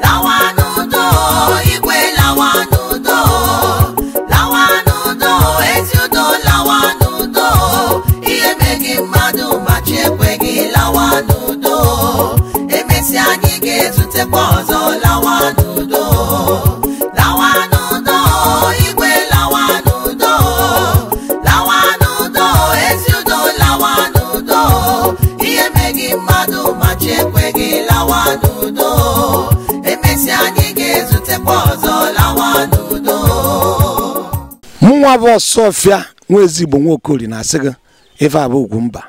老。ọfịa nwa ezigbo nwaokori na-asị gị ife ugwu mba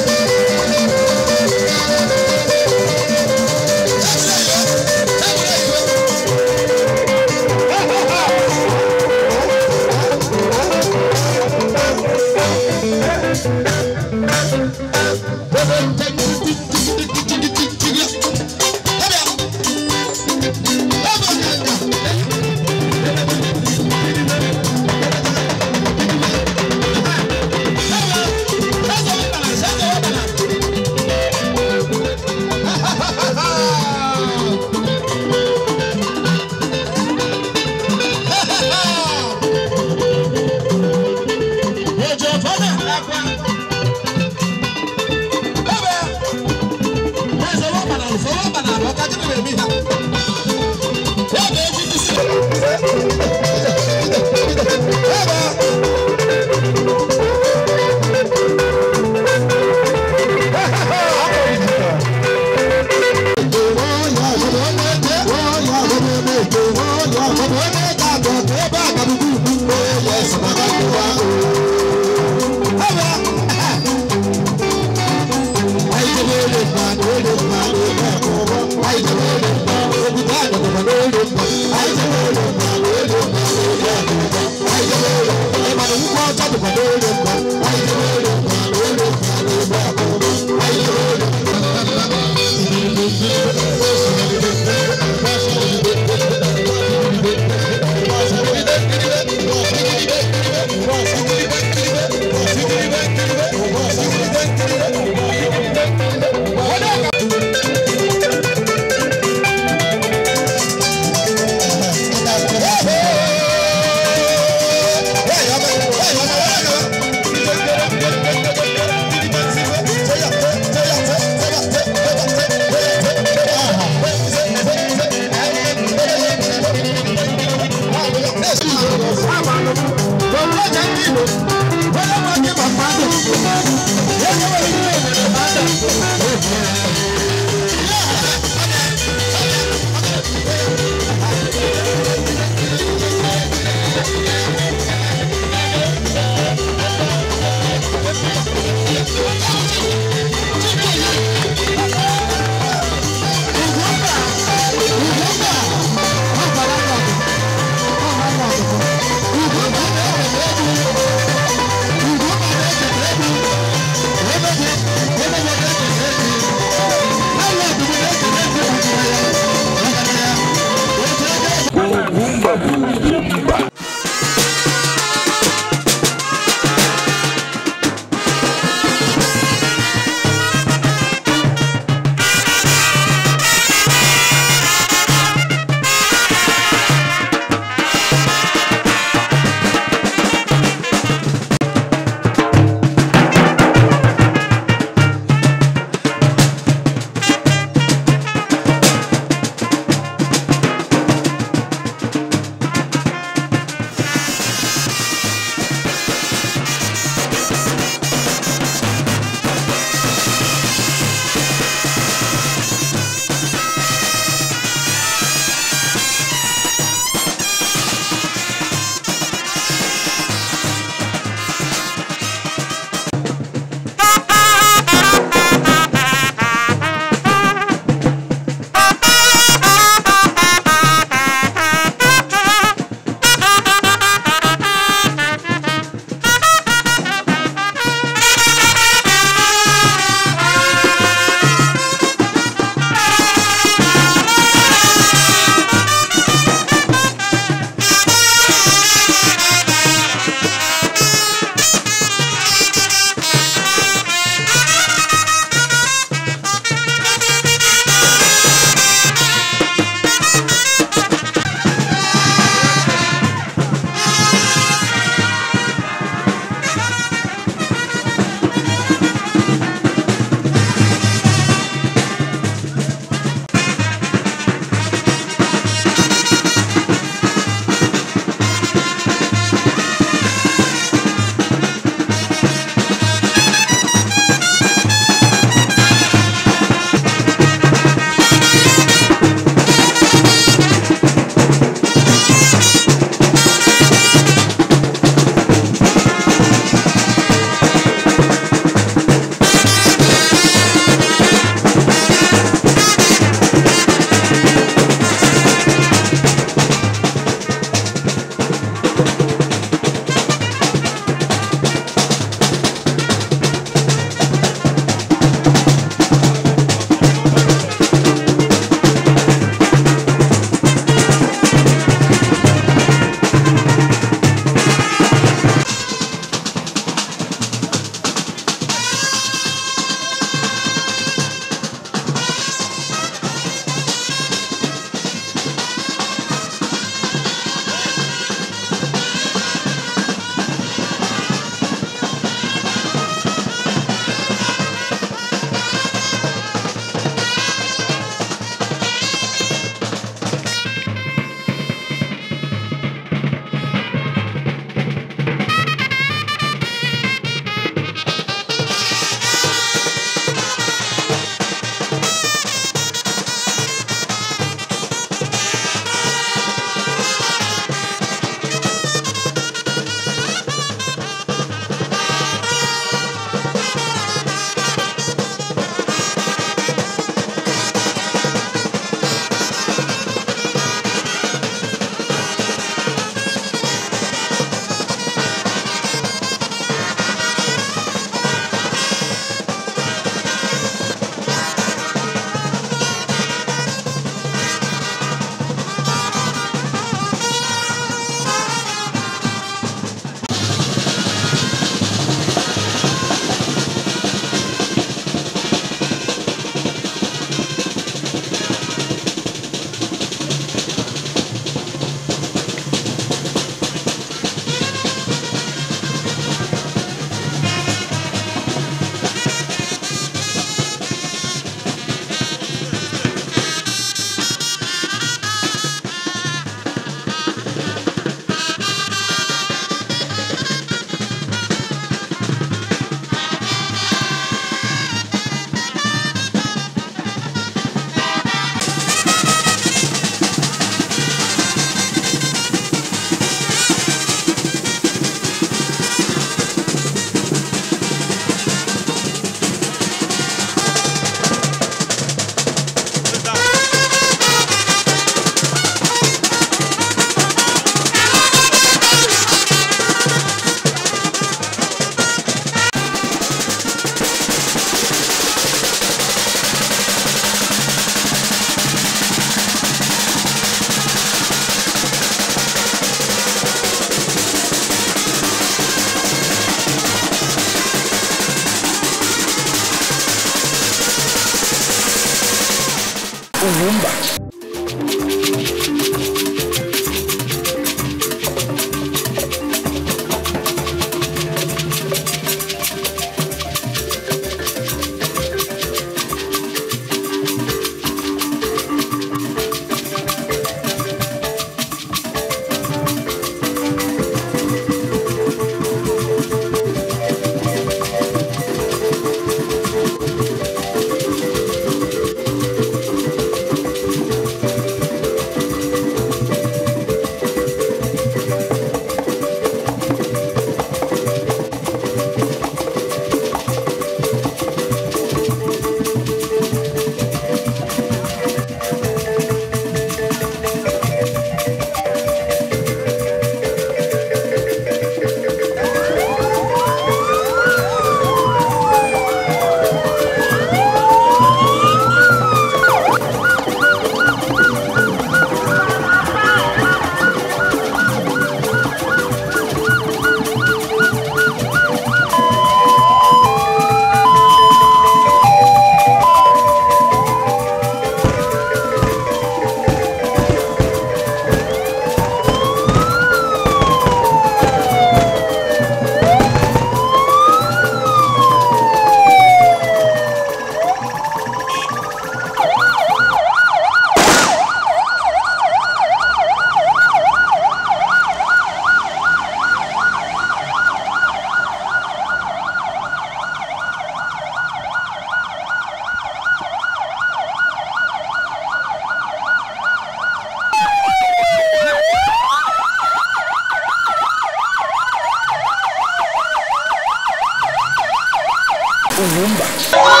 o Lumba.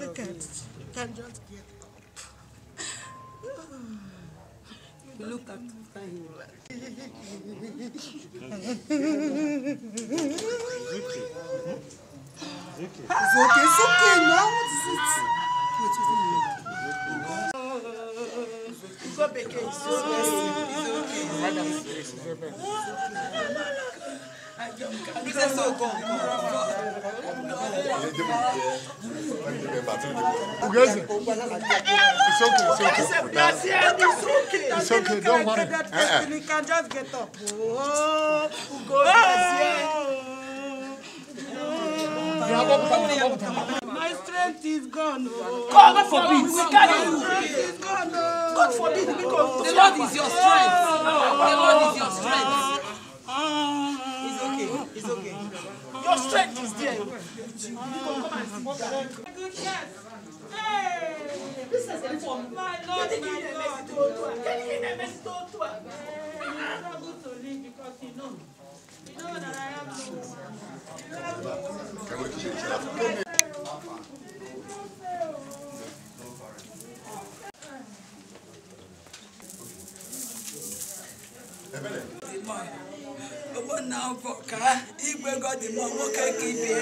Look at it. just get up. look at okay, okay now. it's okay, it's okay. It's okay, it's okay, don't worry. You can just get up. Oh, Ugo, My strength is gone. God forbid, we carry you. God forbid, the Lord is your strength. The Lord is your strength. It's okay. Your strength is there. come and sit down. Good chef. Hey! This is the My Lord, my Lord. Can you give me a message to Otua? Hey, it's not good to leave because you know. You know that I have to. You have to. You have to. Ebele. na n'ọbụ ka igwe godi godimo nwoke ka ibie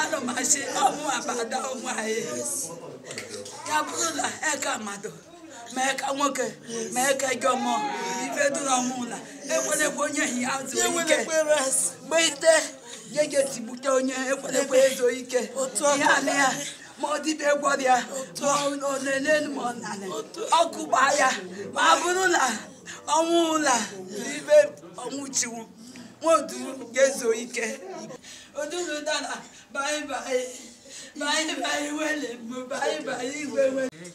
anụ m asị ọmụ abada ụmụ anyị e ya bụrụ na eke amado ma eke nwoke ma eke jọmọ ife dụrụ ọmụla ekwerekwe onye hi azụ e ike gbeite jeje tigbute onye ekwerekwe ezo ike ihe ala ya ma ọ dịbe gwọrịa ma ọ na-ele ma ọ nanị ọkụ gbaa ya ma bụrụ na ọnwụ ụla ibe ọnwụ chiwu mọdụrụ ga-ezo ike odulu dara baibai baibai wele mbụ baibai igwe wele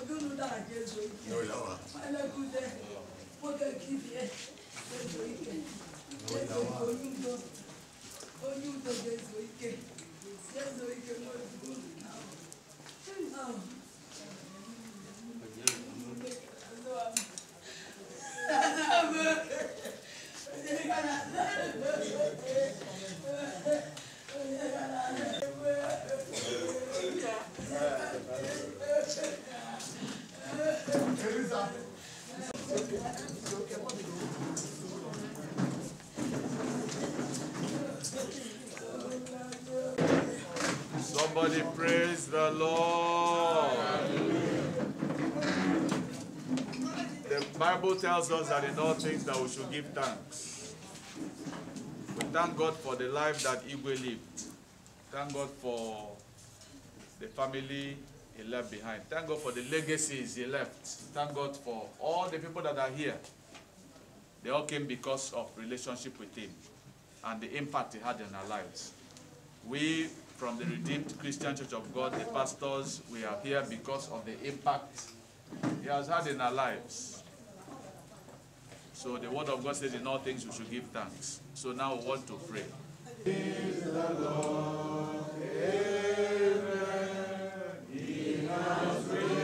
odulu dara ga-ezo ike elekụde nwoke kibie ga-ezo ike onye udo ga-ezo ike ga-ezo ike n'ozuzu na ahụ Somebody praise the Lord. Bible tells us that in all things that we should give thanks. We thank God for the life that Igwe lived. Thank God for the family he left behind. Thank God for the legacies he left. Thank God for all the people that are here. They all came because of relationship with him and the impact he had in our lives. We from the Redeemed Christian Church of God, the pastors, we are here because of the impact he has had in our lives. So the word of God says in all things we should give thanks. So now we want to pray. Amen. He has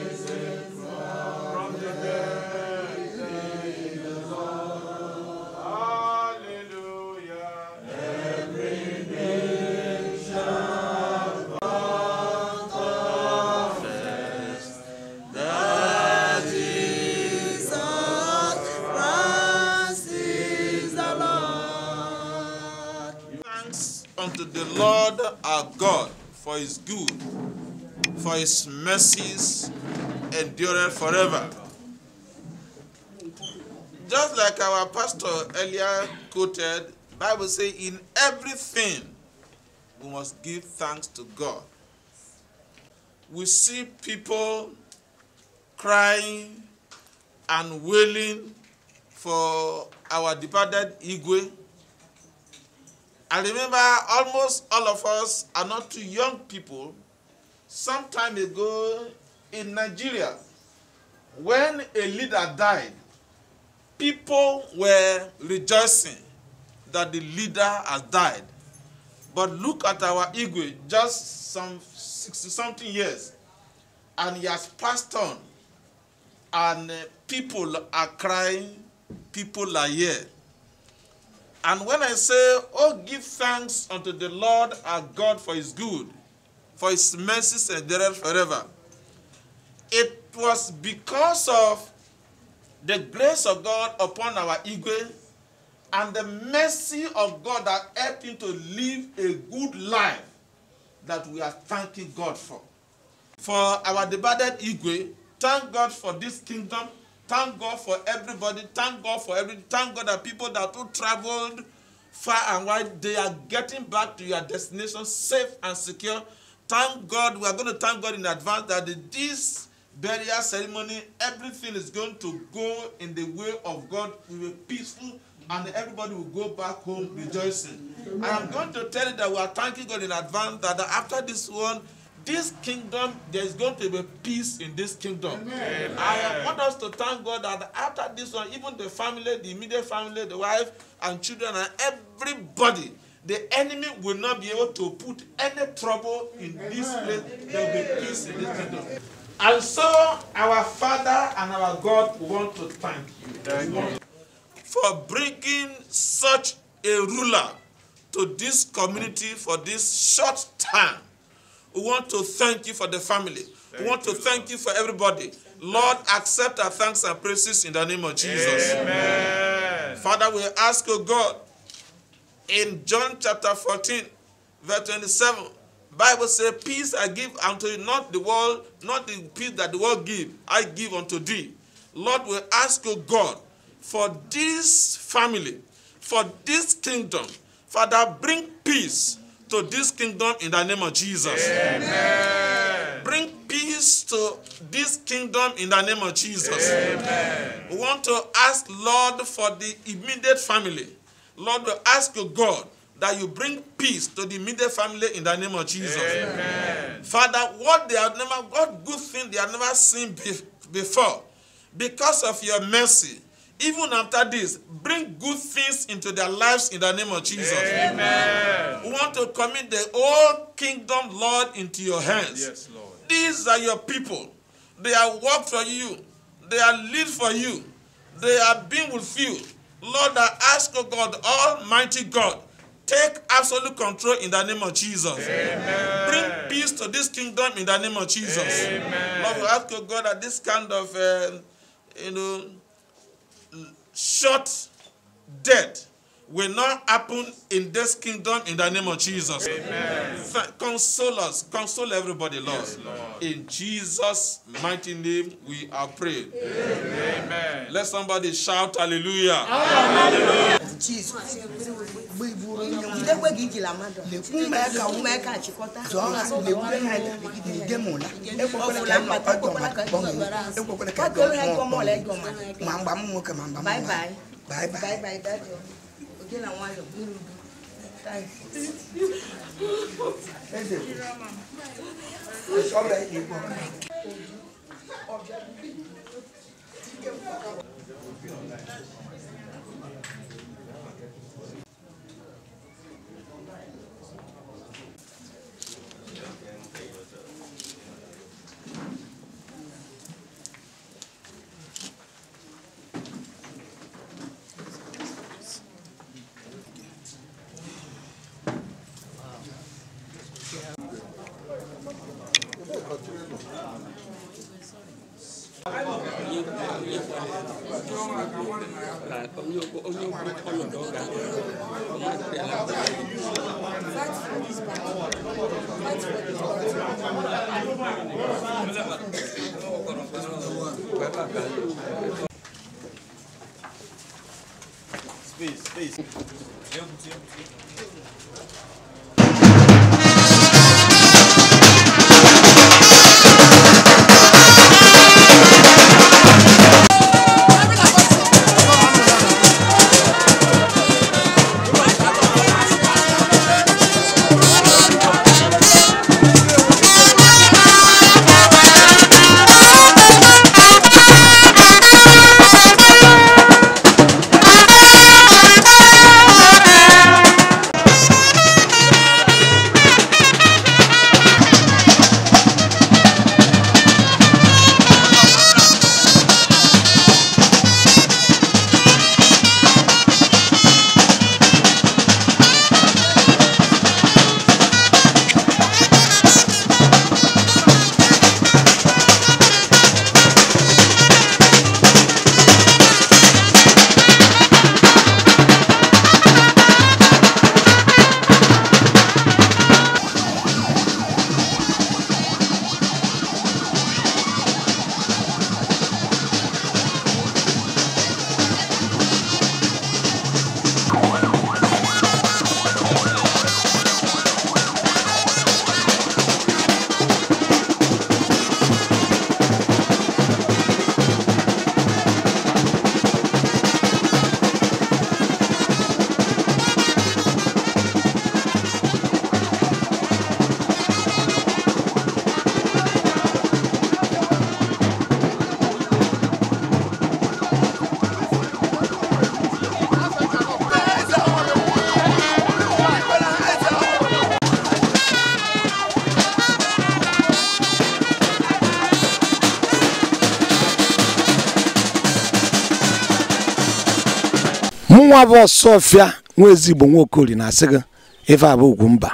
at God for his good, for his mercies endureth forever. Just like our pastor earlier quoted, Bible say in everything we must give thanks to God. We see people crying and wailing for our departed Igwe I remember almost all of us are not too young people some time ago in Nigeria when a leader died people were rejoicing that the leader has died but look at our Igwe just some 60 something years and he has passed on and uh, people are crying people are here And when I say, Oh, give thanks unto the Lord our God for his good, for his mercies endureth forever, it was because of the grace of God upon our Igwe and the mercy of God that helped him to live a good life that we are thanking God for. For our departed Igwe, thank God for this kingdom Thank God for everybody. Thank God for every. Thank God that people that who traveled far and wide, they are getting back to your destination safe and secure. Thank God. We are going to thank God in advance that this burial ceremony, everything is going to go in the way of God. We will peaceful and everybody will go back home rejoicing. I am going to tell you that we are thanking God in advance that after this one, this kingdom, there's going to be peace in this kingdom. Amen. Amen. I want us to thank God that after this one, even the family, the immediate family, the wife and children, and everybody, the enemy will not be able to put any trouble in Amen. this place. There will be peace in this kingdom. And so, our Father and our God want to thank you, thank you. for bringing such a ruler to this community for this short time. We want to thank you for the family. Thank we want to you, thank Lord. you for everybody. Lord, accept our thanks and praises in the name of Jesus. Amen. Father, we ask, you, God, in John chapter 14, verse 27, Bible says, Peace I give unto you, not the world, not the peace that the world give, I give unto thee. Lord, we ask, you, God, for this family, for this kingdom, Father, bring peace to this kingdom in the name of Jesus. Amen. Bring peace to this kingdom in the name of Jesus. Amen. We want to ask, Lord, for the immediate family. Lord, we ask you, God, that you bring peace to the immediate family in the name of Jesus. Amen. Father, what they have never, what good thing they have never seen be, before, because of your mercy, even after this, bring good things into their lives in the name of Jesus. Amen. We want to commit the whole kingdom, Lord, into your hands. Yes, Lord. These are your people. They are work for you. They are lead for you. They are being with you. Lord, I ask, of God, Almighty God, take absolute control in the name of Jesus. Amen. Bring peace to this kingdom in the name of Jesus. Amen. Lord, we ask, of God, that this kind of, uh, you know, shot dead will not happen in this kingdom in the name of Jesus. Amen. Console us. Console everybody, Lord. Yes, Lord. In Jesus' mighty name, we are praying. Amen. Let somebody shout hallelujah. Hallelujah. Jesus. bye bye, ijila mmadụ lekwume ka achịkọta ma mgba m nwoke ma mgba m Thank you. nwa bụ sofia nwa ezigbo nwa okoli na-asị gị ife abụ ugwu mba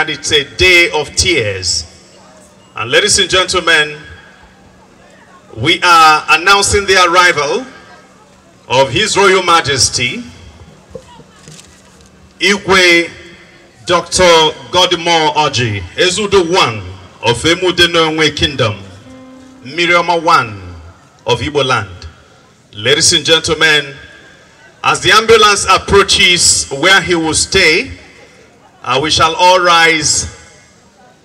and it's a day of tears. And ladies and gentlemen, we are announcing the arrival of His Royal Majesty, Igwe Dr. Godmore Oji, Ezudo One of Emudenonwe Kingdom, Miriam One of Igbo Land. Ladies and gentlemen, as the ambulance approaches where he will stay, uh, we shall all rise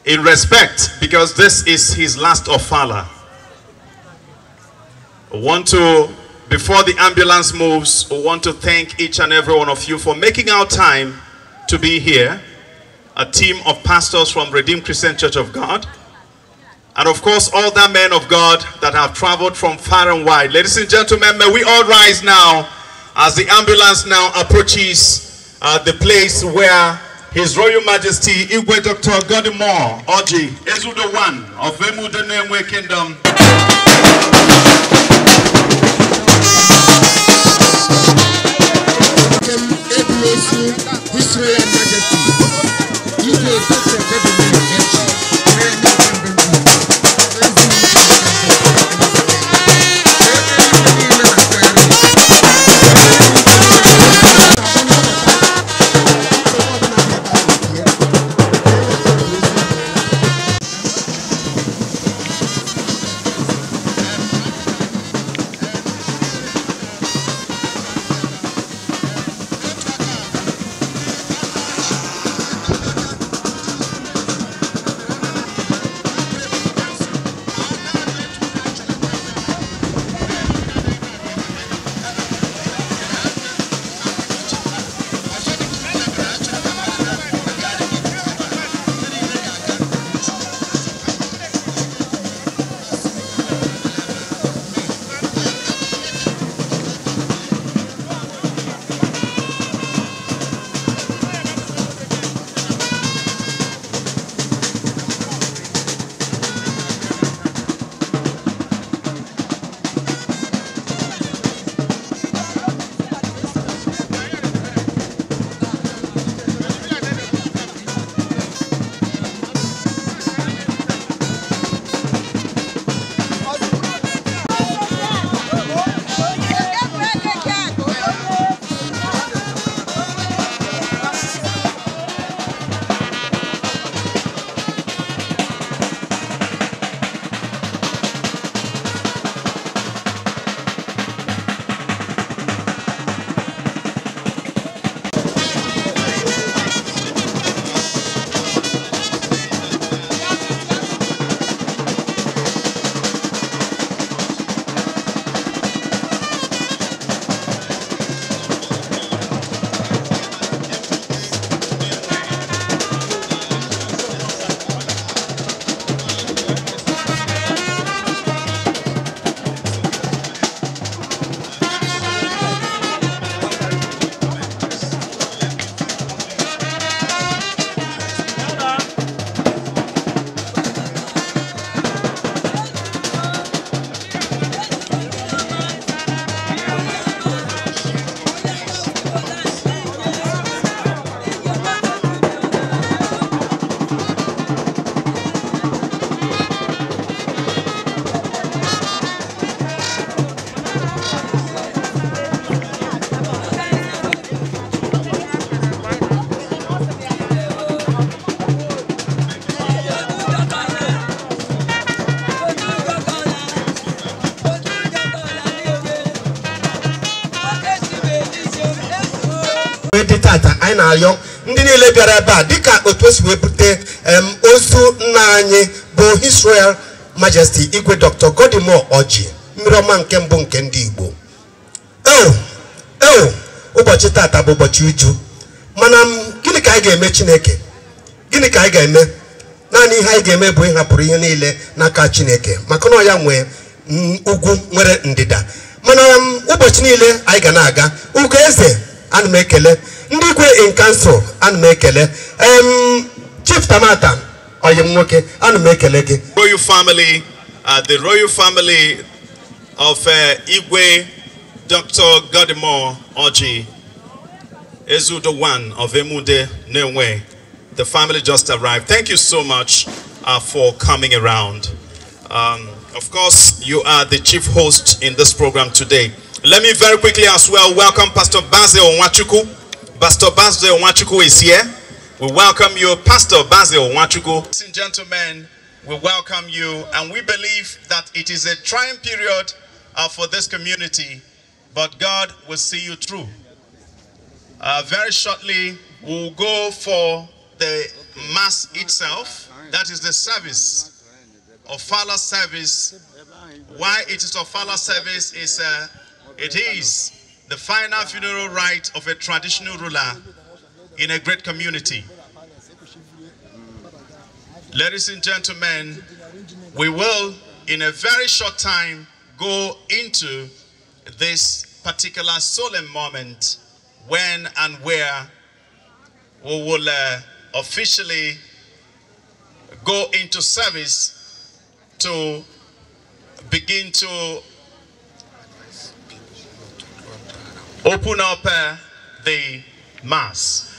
in respect because this is his last ofala. want to, before the ambulance moves, we want to thank each and every one of you for making our time to be here. A team of pastors from Redeemed Christian Church of God. And of course, all the men of God that have traveled from far and wide. Ladies and gentlemen, may we all rise now as the ambulance now approaches uh, the place where His Royal Majesty Igwe Dr. Godimor Oji Ezudo One of Emudenenwe Kingdom. His Royal Majesty Igwe Dr. Godimore Oji anyị na-arịọ ndị niile bịara ebe a dịka otu esi wee bute ozu nna anyị bụ israel majesti Majesty Igwe Dr. Godimore Orji mmiri ọma nke mbụ nke ndị Igbo eo ụbọchị tata bụ ụbọchị uju mana gịnị ka anyị ga-eme Chineke gịnị ka anyị ga-eme naanị ihe anyị ga-eme bụ ịhapụrụ ihe niile n'aka Chineke maka na ya nwee ugwu nwere ndịda mana ụbọchị niile anyị ga na-aga ugo eze ana m ekele in kansụl ana m chief tamata royal family uh, the royal family of uh, igwe dr godimore oji ezudo one of emude nenwe the family just arrived thank you so much uh, for coming around um, of course you are the chief host in this program today let me very quickly as well welcome pastor basil onwachuku Pastor Basil Wachuku is here. We welcome you, Pastor Basil Wachuku. Ladies and gentlemen, we welcome you, and we believe that it is a trying period uh, for this community, but God will see you through. Uh, very shortly, we'll go for the mass itself, that is the service, Father's service. Why it is Father's service is uh, it is the final funeral rites of a traditional ruler in a great community. Ladies and gentlemen, we will, in a very short time, go into this particular solemn moment when and where we will uh, officially go into service to begin to open up uh, the mass.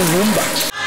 Rumba.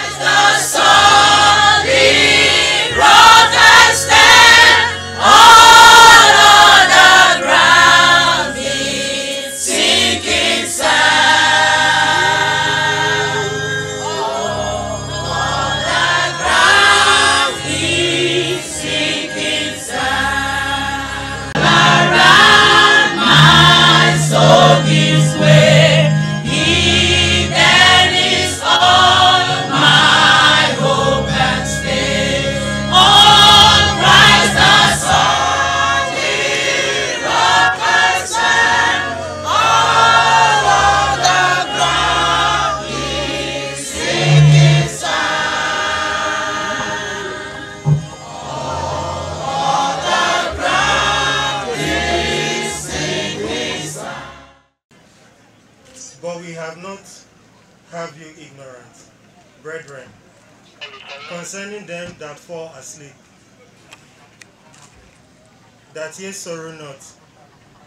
that ye sorrow not,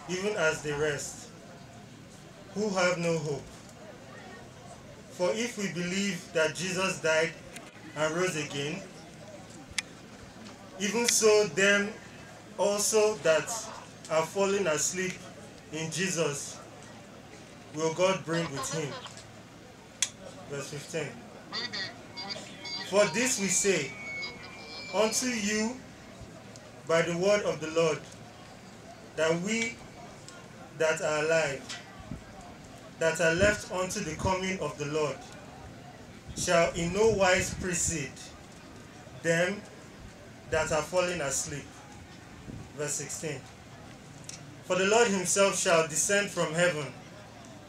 even as the rest, who have no hope. For if we believe that Jesus died and rose again, even so them also that are fallen asleep in Jesus will God bring with him. Verse 15. For this we say, unto you by the word of the Lord, that we that are alive, that are left unto the coming of the Lord, shall in no wise precede them that are fallen asleep. Verse 16. For the Lord himself shall descend from heaven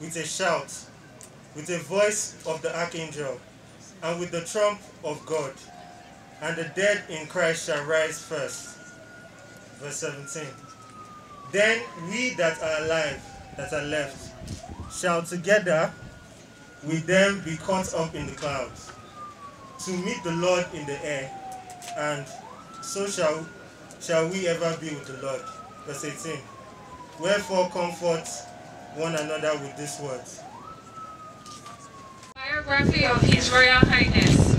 with a shout, with the voice of the archangel, and with the trump of God, and the dead in Christ shall rise first. Verse 17. Then we that are alive, that are left, shall together with them be caught up in the clouds to meet the Lord in the air, and so shall, shall we ever be with the Lord. Verse 18. Wherefore comfort one another with these words. Biography of His Royal Highness,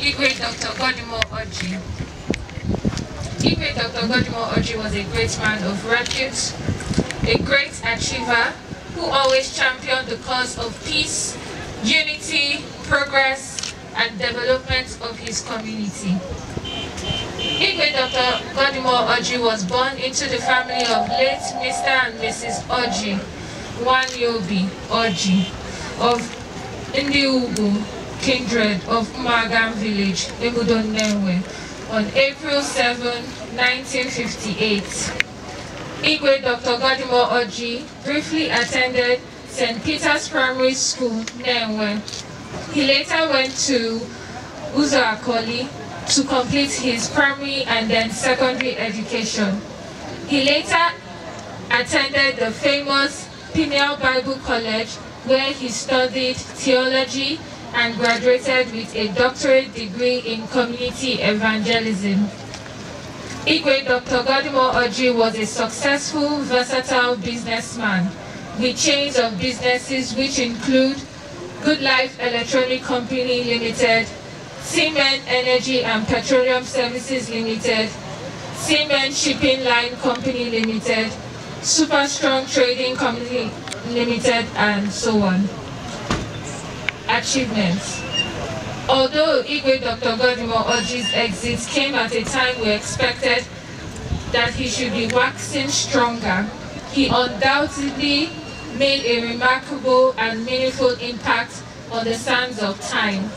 Igwe Dr. Godimo Oji. DPA Dr. Godimo Oji was a great man of repute, a great achiever who always championed the cause of peace, unity, progress, and development of his community. Igwe Dr. Godimo Oji was born into the family of late Mr. and Mrs. Oji, Yobi Oji, of Indiugu kindred of Kumagam village, Egudon Newe, on April 7, 1958. Igwe Dr. Godimo Oji briefly attended St. Peter's Primary School, Nenwe. He later went to Uzo Akoli to complete his primary and then secondary education. He later attended the famous Pineal Bible College where he studied theology and graduated with a doctorate degree in community evangelism. Igwe Dr. Godimo Oji was a successful, versatile businessman with chains of businesses which include Good Life Electronic Company Limited, Seaman Energy and Petroleum Services Limited, Seaman Shipping Line Company Limited, Super Strong Trading Company Limited, and so on achievements. Although Igwe Dr. Godimo Oji's exit came at a time we expected that he should be waxing stronger, he undoubtedly made a remarkable and meaningful impact on the sands of time.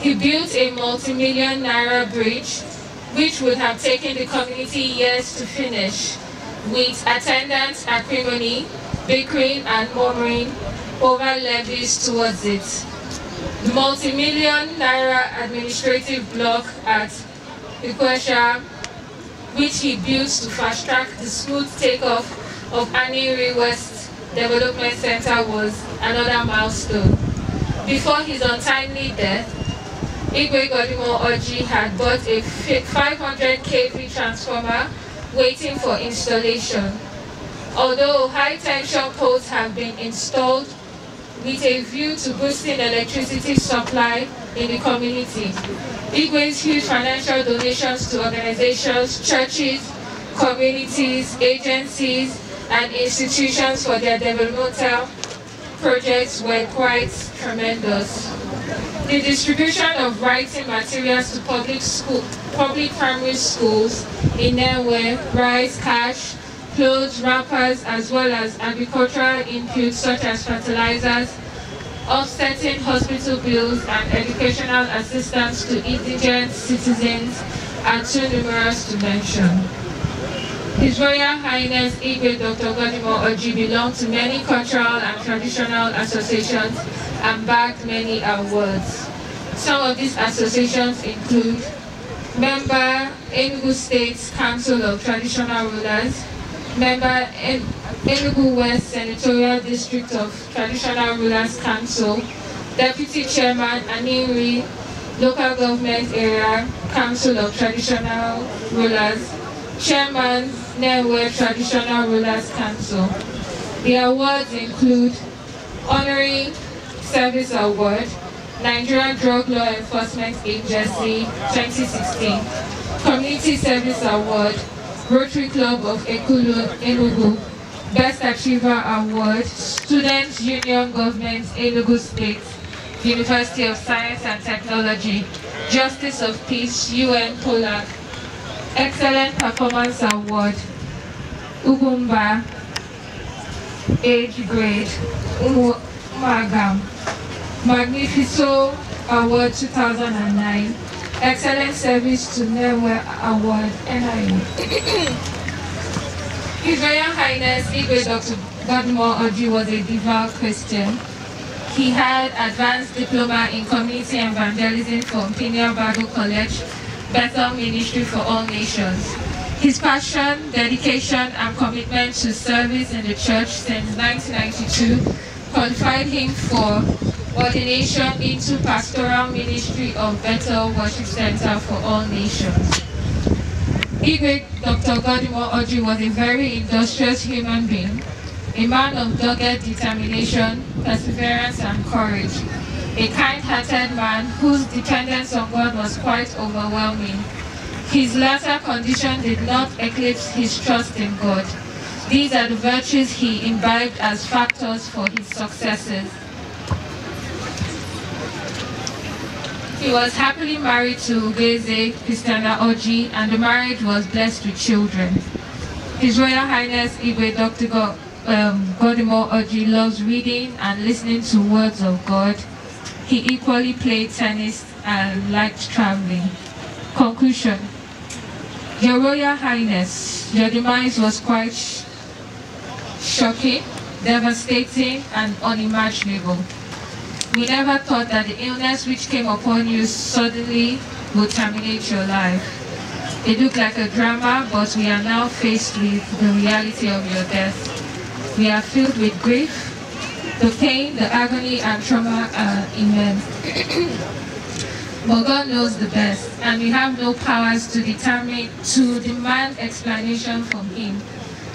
He built a multi-million naira bridge, which would have taken the community years to finish, with attendance acrimony, bickering and murmuring over levies towards it the multi-million naira administrative block at Ikwesha, which he built to fast-track the smooth takeoff of Aniri West Development Center was another milestone. Before his untimely death, Igwe Godimo Oji had bought a 500 kV transformer waiting for installation. Although high tension poles have been installed with a view to boosting electricity supply in the community. Igwe's huge financial donations to organizations, churches, communities, agencies, and institutions for their developmental projects were quite tremendous. The distribution of writing materials to public school, public primary schools in Nenwe, Rice, Cash, Clothes, wrappers as well as agricultural inputs such as fertilizers, offsetting hospital bills and educational assistance to indigent citizens are too numerous to mention. His Royal Highness Igwe Dr. Godimo Oji belonged to many cultural and traditional associations and bagged many awards. Some of these associations include member Enugu State Council of Traditional Rulers, member in Enugu West Senatorial District of Traditional Rulers Council, Deputy Chairman Aniri Local Government Area Council of Traditional Rulers, Chairman Newe Traditional Rulers Council. The awards include Honorary Service Award, Nigeria Drug Law Enforcement Agency 2016, Community Service Award, Rotary Club of Ekulu, Enugu, Best Achiever Award, Students Union Government, Enugu State, University of Science and Technology, Justice of Peace, UN Polak, Excellent Performance Award, Ugumba, Age Grade, Umagam, Magnifico Award 2009, Excellent Service to Nemwe Award NIU. His Royal Highness Igwe Dr. Godmore Oji was a devout Christian. He had advanced diploma in community and evangelism from Pinia Bible College, Bethel Ministry for All Nations. His passion, dedication, and commitment to service in the church since 1992 qualified him for ordination into pastoral ministry of Bethel Worship Center for All Nations. Igwe Dr. Godimo Oji was a very industrious human being, a man of dogged determination, perseverance, and courage, a kind-hearted man whose dependence on God was quite overwhelming. His latter condition did not eclipse his trust in God. These are the virtues he imbibed as factors for his successes. He was happily married to Ugeze Pistana Oji and the marriage was blessed with children. His Royal Highness Igwe Dr. God, um, Godimo Oji loves reading and listening to words of God. He equally played tennis and liked traveling. Conclusion. Your Royal Highness, your demise was quite sh shocking, devastating and unimaginable. We never thought that the illness which came upon you suddenly would terminate your life. It looked like a drama, but we are now faced with the reality of your death. We are filled with grief. The pain, the agony, and trauma are immense. but God knows the best, and we have no powers to determine, to demand explanation from Him.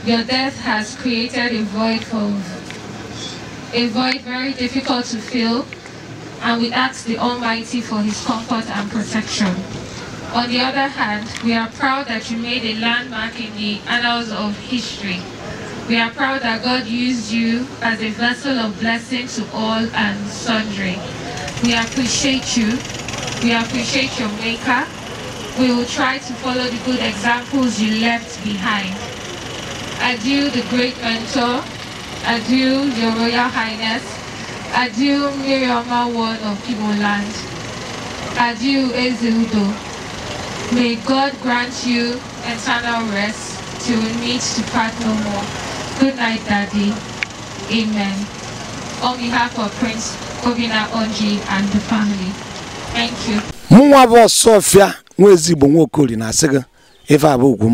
Your death has created a void for a void very difficult to fill, and we ask the Almighty for his comfort and protection. On the other hand, we are proud that you made a landmark in the annals of history. We are proud that God used you as a vessel of blessing to all and sundry. We appreciate you. We appreciate your maker. We will try to follow the good examples you left behind. Adieu, the great mentor, Adieu, Your Royal Highness. Adieu, Miriamma Ward of Kiboland. Adieu, Ezeudo. May God grant you eternal rest till we meet to part no more. Good night, Daddy. Amen. On behalf of Prince Obina Onji and the family, thank you. Mụ nwa bụ Sofia nwa ezigbo nwa Okoli na-asị gị abụ ugwu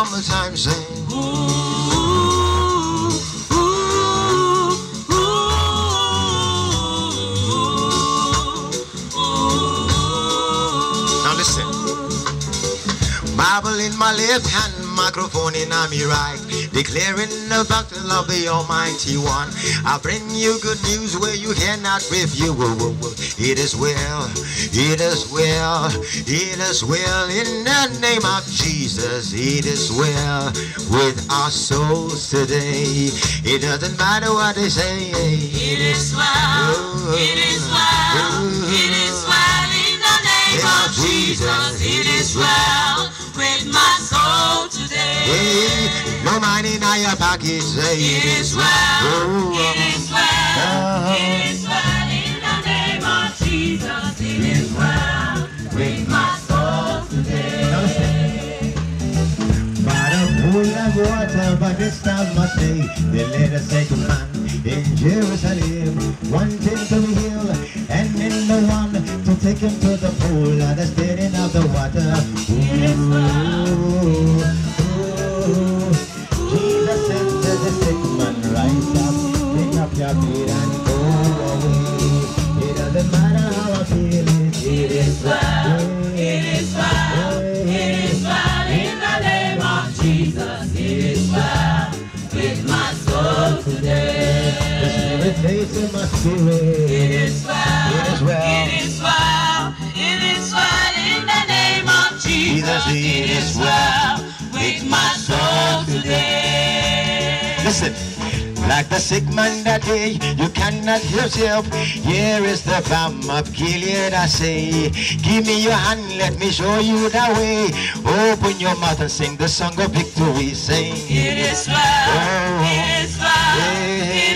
one more time, sing. now listen. Bible in my left hand, microphone in my right declaring the love of the Almighty One. I bring you good news where you cannot refuse. It is well, it is well, it is well in the name of Jesus. It is well with our souls today. It doesn't matter what they say. It is well, it is well, it is well in the name of Jesus. It is well. With my soul today. Hey, no money, now your pocket say it is well. Oh, uh, it is well. Oh. Uh-huh. It is well in the name of Jesus. where I travel back this time my stay. The letter second man in Jerusalem. One came to the hill and then the one to take him to the pool. And The steering of the water. Ooh, ooh. Jesus said the sick man, rise up, pick up your feet and go away. It doesn't matter how I feel, it is right. it's in my spirit. It is well. It is well. It is well. It is well in the name of Jesus. Jesus it is well with my soul today. Listen. Like the sick man that day, you cannot yourself. Here is the balm of Gilead, I say. Give me your hand, let me show you the way. Open your mouth and sing the song of victory. Sing. It is well. Oh. It is well. Yeah. It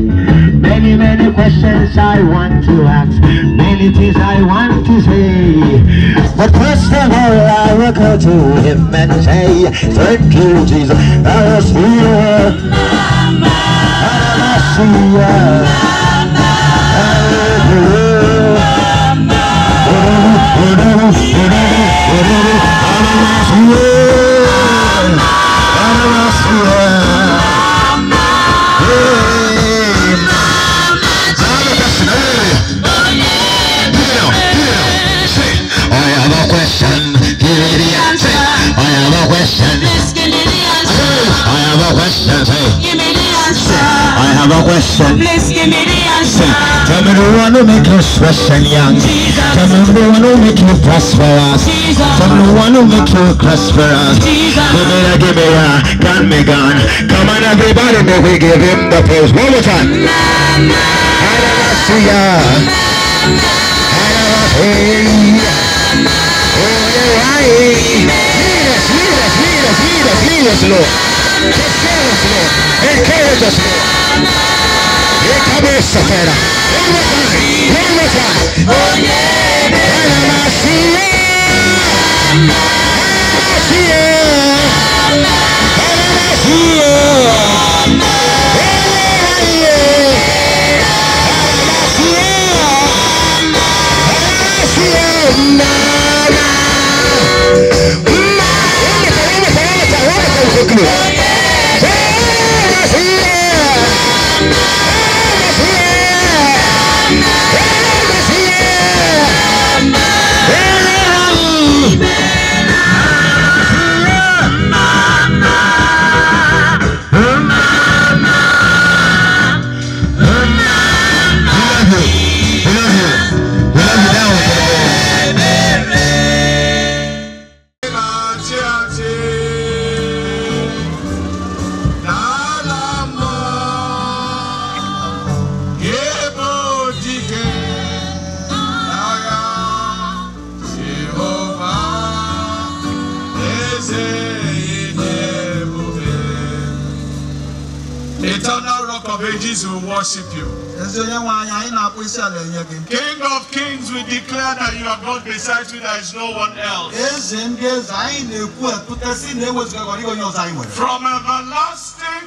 Many, many questions I want to ask Many things I want to say But first of all I will go to him and say Thank you Jesus, I will Yeah. question. Give me the answer. I have a question. Please give me the answer. I have a question. Give me the answer. I have a question. Please give me the answer. Tell me the one who make you fresh and young. Jesus. Tell me the one who make you prosperous. Jesus. Tell me the one who make you prosperous. Jesus. Give me the, give me a can me gone. Come on everybody, may we give him the praise. One more time. Mama. I Hallelujah. Mama. I Hallelujah. ahí. Mires, mires, mires, mires, míreslo. El De cabeza, espera. Venga venga acá. Para Masía. Masía. Para quickly. there is no one else. From everlasting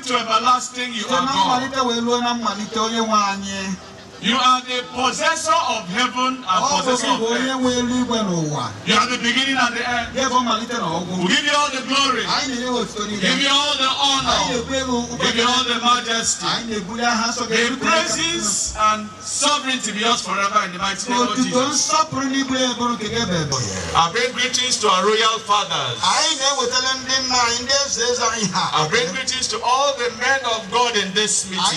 to everlasting, you are God. You are the possessor of heaven and oh, possessor of earth. You are the beginning and the end. We give you all the glory. give you all the honor. give you all the majesty. The praises and sovereignty be yours forever in the mighty name of Jesus. I bring greetings to our royal fathers. I bring greetings to all the men of God in this meeting.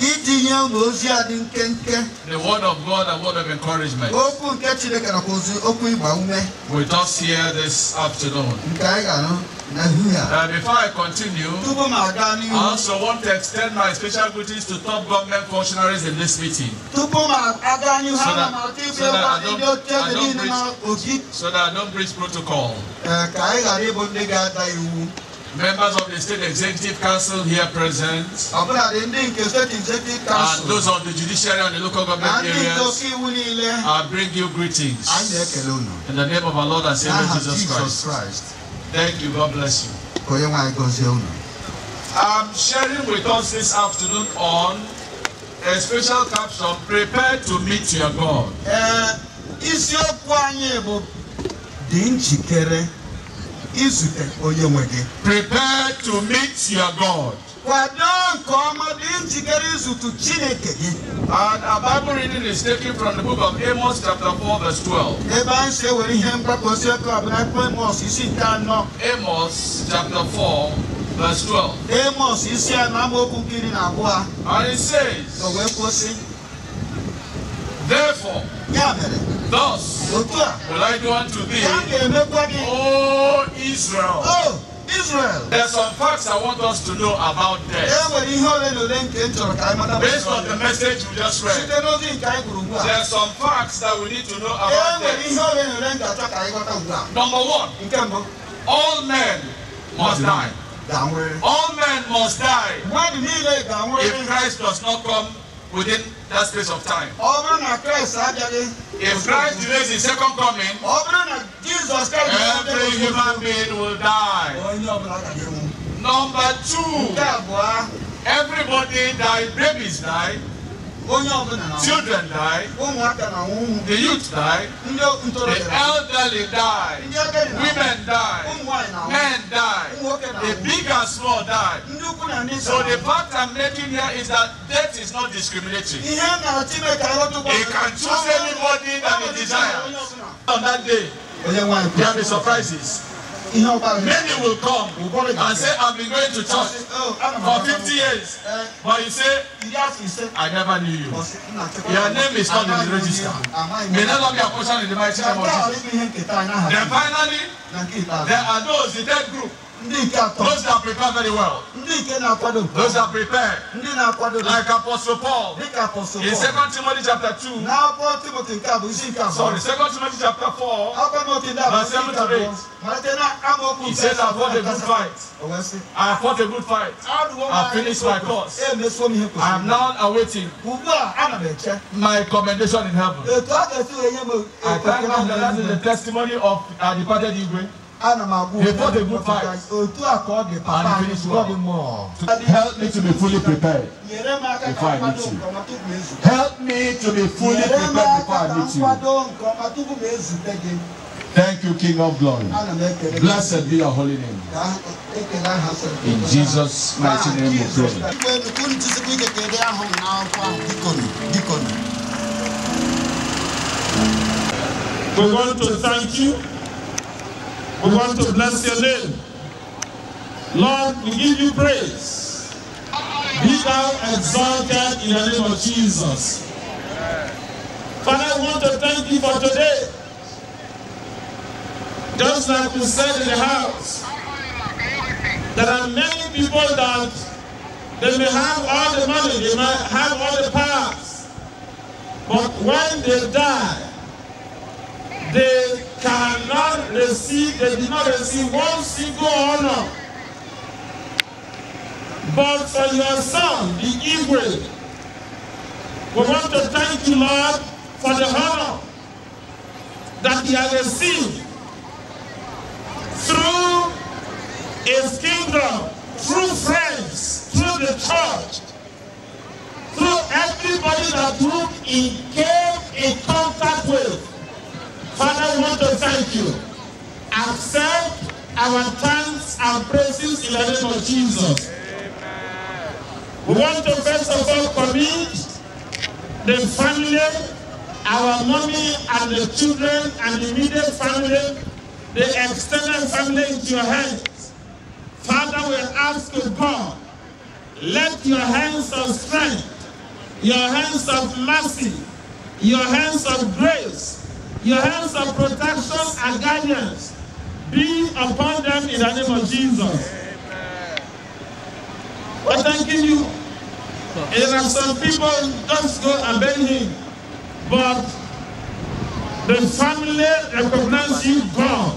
itinye unu ozi a dị nkenke the word of God and word of encouragement okwu nke Chineke nakwa ozi okwu ịgba ume with us here this afternoon nke anyị ga-anụ Uh, before I continue, I also want to extend my special greetings to top government functionaries in this meeting. So that, so that, I, don't, I don't breach, so that I don't breach protocol. Eh, members of the State Executive Council here present, and those of the judiciary and the local government areas, I bring you greetings in the name of our Lord and Savior Jesus Christ. Thank you. God bless you. I'm sharing with us this afternoon on a special caption, Prepare to meet your God. Uh, izute onye nwe gị prepare to meet your god kwado nke ọma dị njikere izute chineke gị And our Bible reading is taken from the book of Amos chapter 4 verse 12. Ebe anyị si ewere ihe mgbakọ si ọkụ abụla akwụkwọ Amos isi nke anọ. Amos chapter 4 verse 12. Amos isi anọ amaokwu nke iri na abụọ. And it says. Therefore. Ya Thus will I go unto thee, O Israel. Oh, Israel. There are some facts I want us to know about death. E Based on the message we just read, there are some facts that we need to know about e death. Number one, all men must die. All men must die. If Christ does not come within that space of time. if Christ delays his second coming. every human being will die. number two. everybody die babies die onye ọbụla na children die ụmụaka na ụmụ the youth die ndị ntorobịa the elderly die ndị agadi na women die ụmụ na men die ụmụ na the big and small die ndị ukwu na ndị so the fact I'm making here is that death is not discriminating ihe na Chineke arụtụkwa he can choose anybody that he desires on that day there be surprises. Many will come and say, I've been going to church oh, for 50 years. Eh, But you say, I never knew you. Your name is not in the register. May not be a portion in the mighty name of Jesus. Then finally, there are those, the dead group. Those that prepared very well. Those that prepared. Like Apostle Paul. In 2 Timothy chapter 2. Sorry, 2 Timothy chapter 4. Verse 7 to 8. He says, oh, I fought a good fight. I fought a good fight. I finished my course. I am now awaiting my commendation in heaven. I thank God that that is the testimony of our uh, departed Igwe ana ma go. He fought good fight. Otu akọ dị papa and he well. help me to be fully prepared before I meet you. Help me to be fully prepared before I meet you. Thank you, King of Glory. Blessed be your holy name. In Jesus' mighty name we pray. We want to thank you. We want to bless your name. Lord, we give you praise. Be thou exalted in the name of Jesus. Father, I want to thank you for today. Just like we said in the house, there are many people that they may have all the money, they may have all the powers, but when they die, they cannot receive, they did not receive one single honor. But for your son, the Igwe, we want to thank you, Lord, for the honor that he has received through his kingdom, through friends, through the church, through everybody that whom he came in contact with. Father, we want to thank you. Accept our thanks and praises in the name of Jesus. We want to first of all commit the family, our mommy and the children and the immediate family, the extended family into your hands. Father, we ask you, God, let your hands of strength, your hands of mercy, your hands of grace, Your hands of protection and guidance be upon them in the name of Jesus. We're thanking you. there are some people just go and beg him. But the family recognized you, God.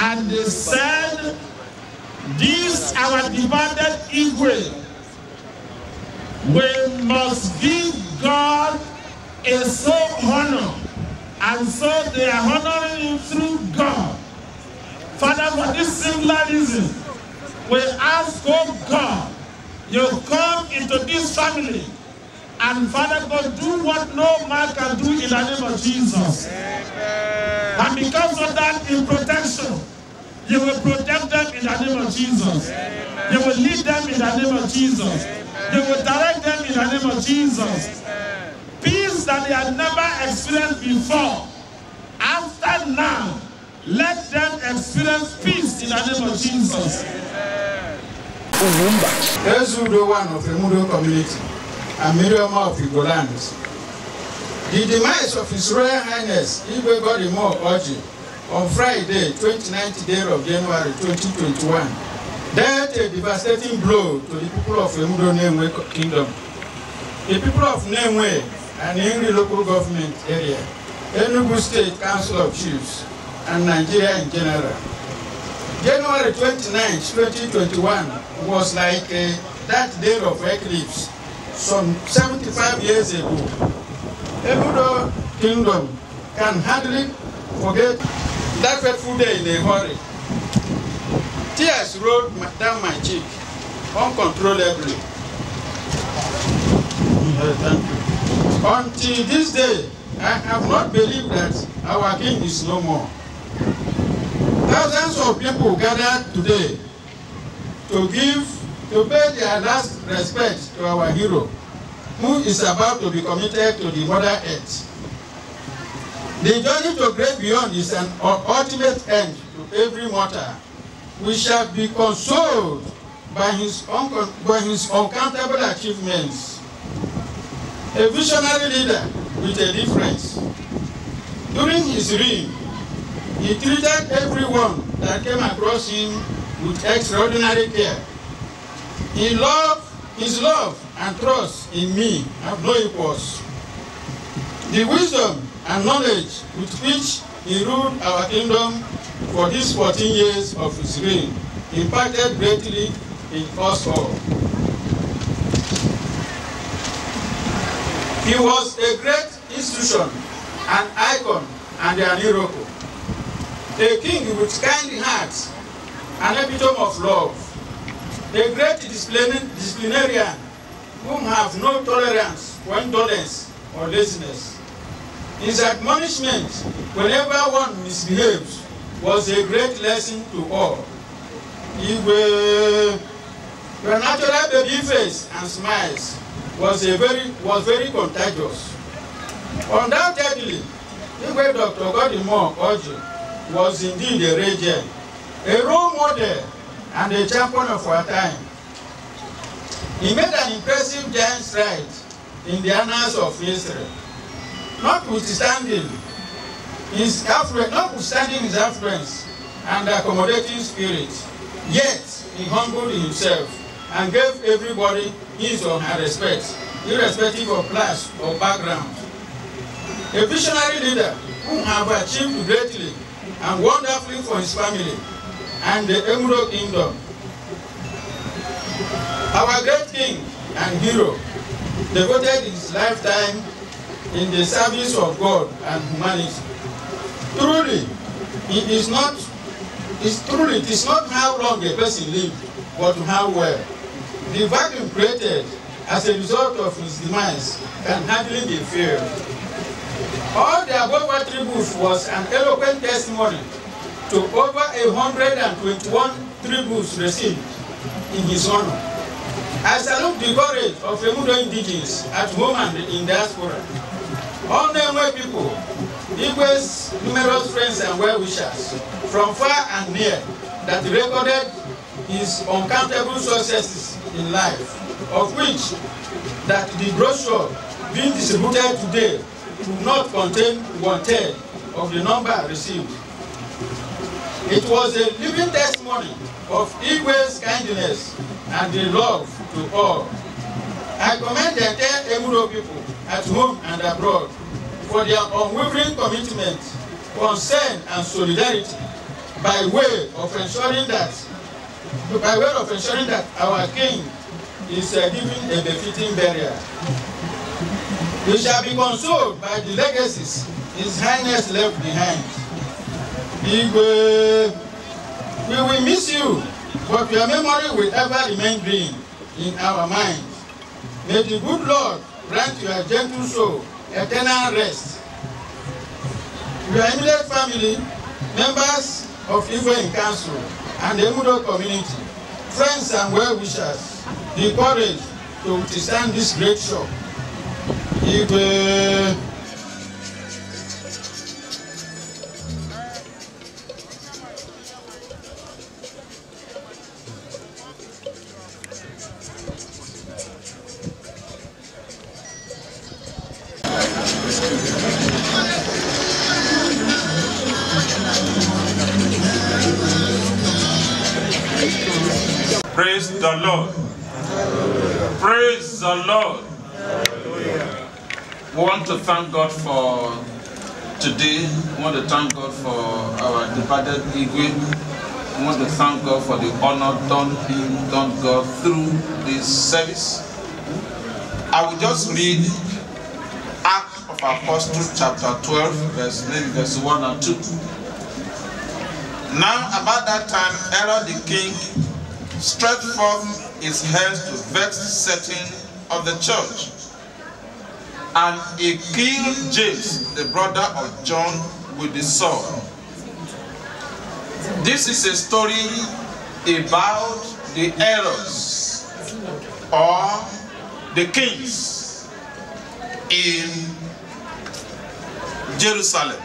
And they said, this our divided Israel. We must give God a soul honor and so they are honoring you through God. Father, for this singular reason, we ask, oh God, you come into this family. And Father God, do what no man can do in the name of Jesus. Amen. And because of that, in protection, you will protect them in the name of Jesus. Amen. You will lead them in the name of Jesus. Amen. You will direct them in the name of Jesus. that they had never experienced before. After now, let them experience peace in the name of Jesus. Owumba. Ezudo one of the Emudo community, and Miriamah of Igoland. The demise of His Royal Highness Igwe Godimo Oji on Friday, 29th day of January 2021 dealt a devastating blow to the people of Emudo Nenwe Kingdom. The people of Nenwe and Yuri local government area, Enugu State Council of Chiefs, and Nigeria in general. January 29, 2021 was like uh, that day of eclipse some 75 years ago. Ebudo Kingdom can hardly forget that fateful day in a hurry. Tears rolled down my cheek uncontrollably. Yeah, thank you. Until this day, I have not believed that our king is no more. Thousands of people gathered today to give, to pay their last respect to our hero, who is about to be committed to the Mother Earth. The journey to great beyond is an ultimate end to every mortal. We shall be consoled by his, by his uncountable achievements a visionary leader with a difference. During his reign, he treated everyone that came across him with extraordinary care. He loved, his love and trust in me have no equals. The wisdom and knowledge with which he ruled our kingdom for these 14 years of his reign impacted greatly in us all. He was a great institution, an icon, and an hero. A king with kind hearts, an epitome of love. A great disciplinarian whom have no tolerance for indolence or laziness. His admonishment whenever one misbehaves was a great lesson to all. He were, were natural baby face and smiles was a very was very contagious. Undoubtedly, Igwe Dr. Godimore Oji was indeed a regent, a role model and a champion of our time. He made an impressive giant stride in the annals of Israel. Notwithstanding his notwithstanding his affluence and accommodating spirit, yet he humbled himself and gave everybody his or her respect, irrespective of class or background. A visionary leader who have achieved greatly and wonderfully for his family and the Emerald Kingdom. Our great king and hero devoted his lifetime in the service of God and humanity. Truly, it is not, it's truly, it is not how long a person lives, but how well. The vacuum created as a result of his demise can hardly be filled. All the above attributes was an eloquent testimony to over 121 tributes received in his honor. I salute the courage of Emudo indigenous at home and in diaspora. All Nemwe people, Igwe's numerous friends and well-wishers from far and near that recorded his uncountable successes in life, of which that the brochure being distributed today could not contain one-third of the number received. It was a living testimony of Igwe's kindness and the love to all. I commend the entire Emuro people at home and abroad for their unwavering commitment, concern, and solidarity by way of ensuring that by way of ensuring that our king is uh, given a befitting burial. We shall be consoled by the legacies His Highness left behind. Igwe, we will miss you, but your memory will ever remain green in our minds. May the good Lord grant your gentle soul eternal rest. Your immediate family, members of Igwe in Council, and the Emudo community, friends and well-wishers, the courage to withstand this great shock. If, uh, the Lord. Praise the Lord. We want to thank God for today. We want to thank God for our departed Igwe. We want to thank God for the honor done him, done God through this service. I will just read Acts of Apostles chapter 12, verse maybe verse 1 and 2. Now about that time, Herod the king stretched forth his hands to vex the setting of the church. And he killed James, the brother of John, with the sword. This is a story about the errors or the kings in Jerusalem,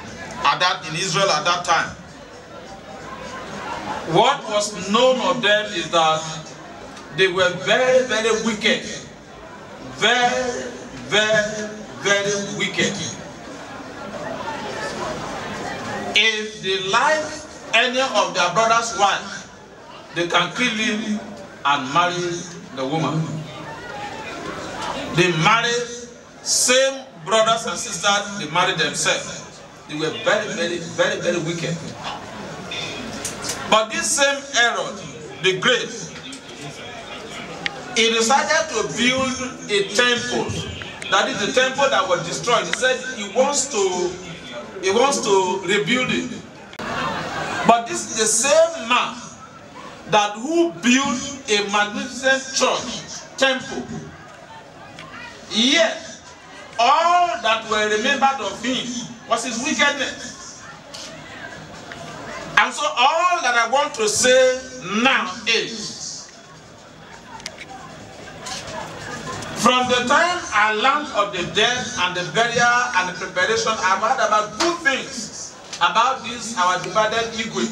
at that, in Israel at that time. What was known of them is that they were very, very wicked. Very, very, very wicked. If they like any of their brother's wife, they can kill him and marry the woman. They married same brothers and sisters, they married themselves. They were very, very, very, very wicked. But this same Herod the Great, he decided to build a temple. That is the temple that was destroyed. He said he wants to he wants to rebuild it. But this is the same man that who built a magnificent church, temple. Yet, all that were remembered of him was his wickedness. And so all that I want to say now is from the time I learned of the death and the burial and the preparation, I've heard about good things about this, our divided Igwe.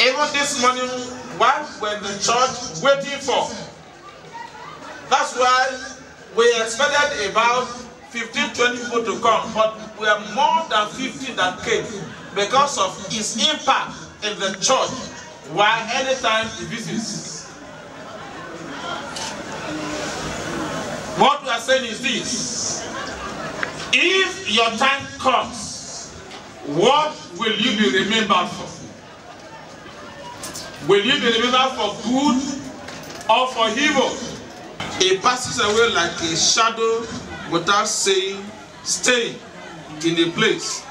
Even this morning, what were the church waiting for? That's why we expected about 15, 20 people to come, but we have more than 50 that came because of his impact in the church while anytime he visits. What we are saying is this. If your time comes, what will you be remembered for? Will you be remembered for good or for evil? It passes away like a shadow without saying, stay in a place.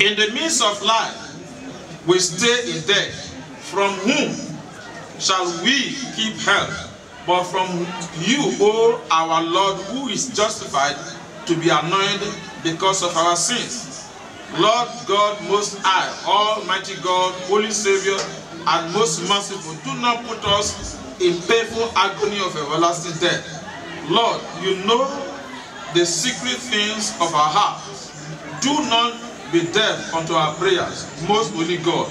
In the midst of life, we stay in death. From whom shall we keep help? But from you, O our Lord, who is justified to be anointed because of our sins. Lord God Most High, Almighty God, Holy Savior, and Most Merciful, do not put us in painful agony of everlasting death. Lord, you know the secret things of our hearts. Do not be deaf unto our prayers, most holy God,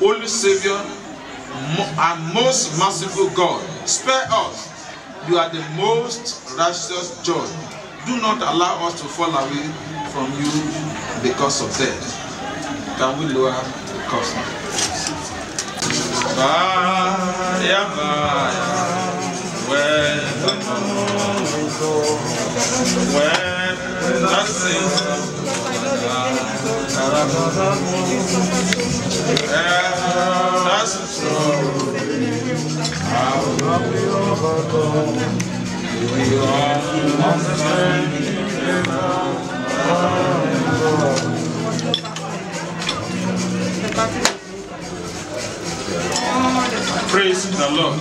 holy Savior, and most merciful God. Spare us. You are the most righteous judge. Do not allow us to fall away from you because of death. Can we lower the cost? Baya, baya, when the moon, when the sun. Praise the Lord.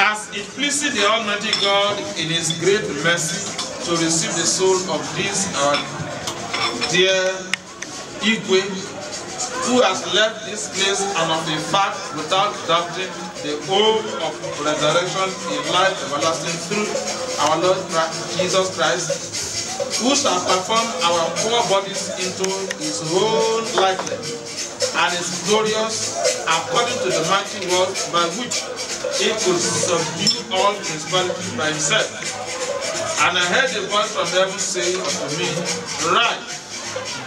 As it pleases the Almighty God in His great mercy to receive the soul of this our dear Igwe, who has left this place and of the fact without doubting the hope of resurrection in life everlasting through our Lord Jesus Christ, who shall perform our poor bodies into his own likeness and is glorious according to the mighty word by which he could subdue all principalities by himself. And I heard a voice from heaven saying unto me, Right,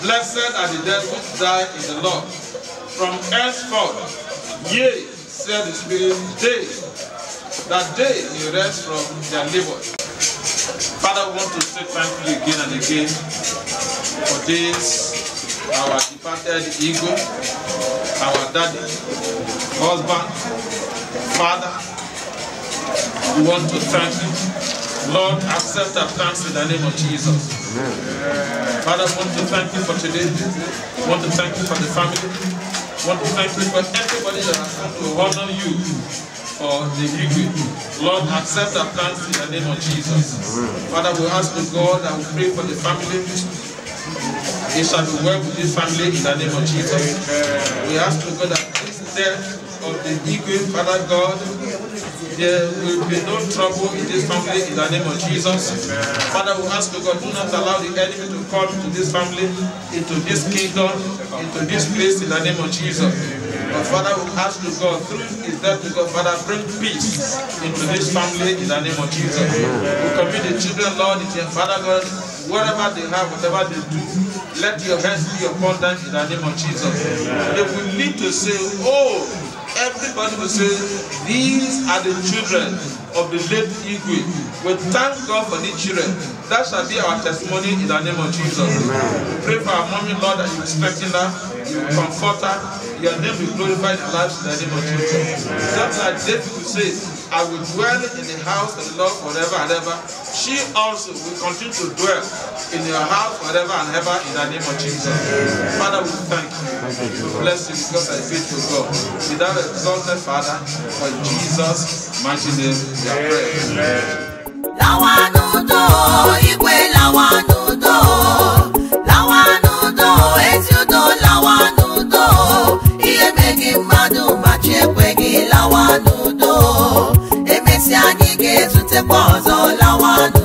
blessed are the dead which die in the Lord. From henceforth, yea, said the Spirit, they, that they may rest from their labor. Father, we want to say thank you again and again for this, our departed ego, our daddy, husband, Father, we want to thank you. Lord, accept our thanks in the name of Jesus. Amen. Father, we want to thank you for today. We want to thank you for the family. We want to thank you for everybody that has come to honor you for the victory. Lord, accept our thanks in the name of Jesus. Amen. Father, we ask the God and we pray for the family. It shall be well with this family in the name of Jesus. We ask the God that this death of the Igwe, Father God, there will be no trouble in this family in the name of Jesus. Father, we ask you, God, do not allow the enemy to come into this family, into this kingdom, into this place in the name of Jesus. But Father, we ask you, God, through his death, God, Father, bring peace into this family in the name of Jesus. We commit the children, Lord, into your Father God, whatever they have, whatever they do, let your hands be upon them in the name of Jesus. They will need to say, oh, everybody will say these are the children of the late Igwe we thank God for these children that shall be our testimony in the name of Jesus Amen. pray for our mommy Lord that you will strengthen her you comfort her your name will glorify the lives in the name of Jesus Amen. that's why David will say I will dwell in the house of the Lord forever and ever. She also will continue to dwell in your house forever and ever in the name of Jesus. Father, we thank you. We bless you because I faith to God. We thou exalted, Father, for Jesus' mighty name we are praying. all I lawa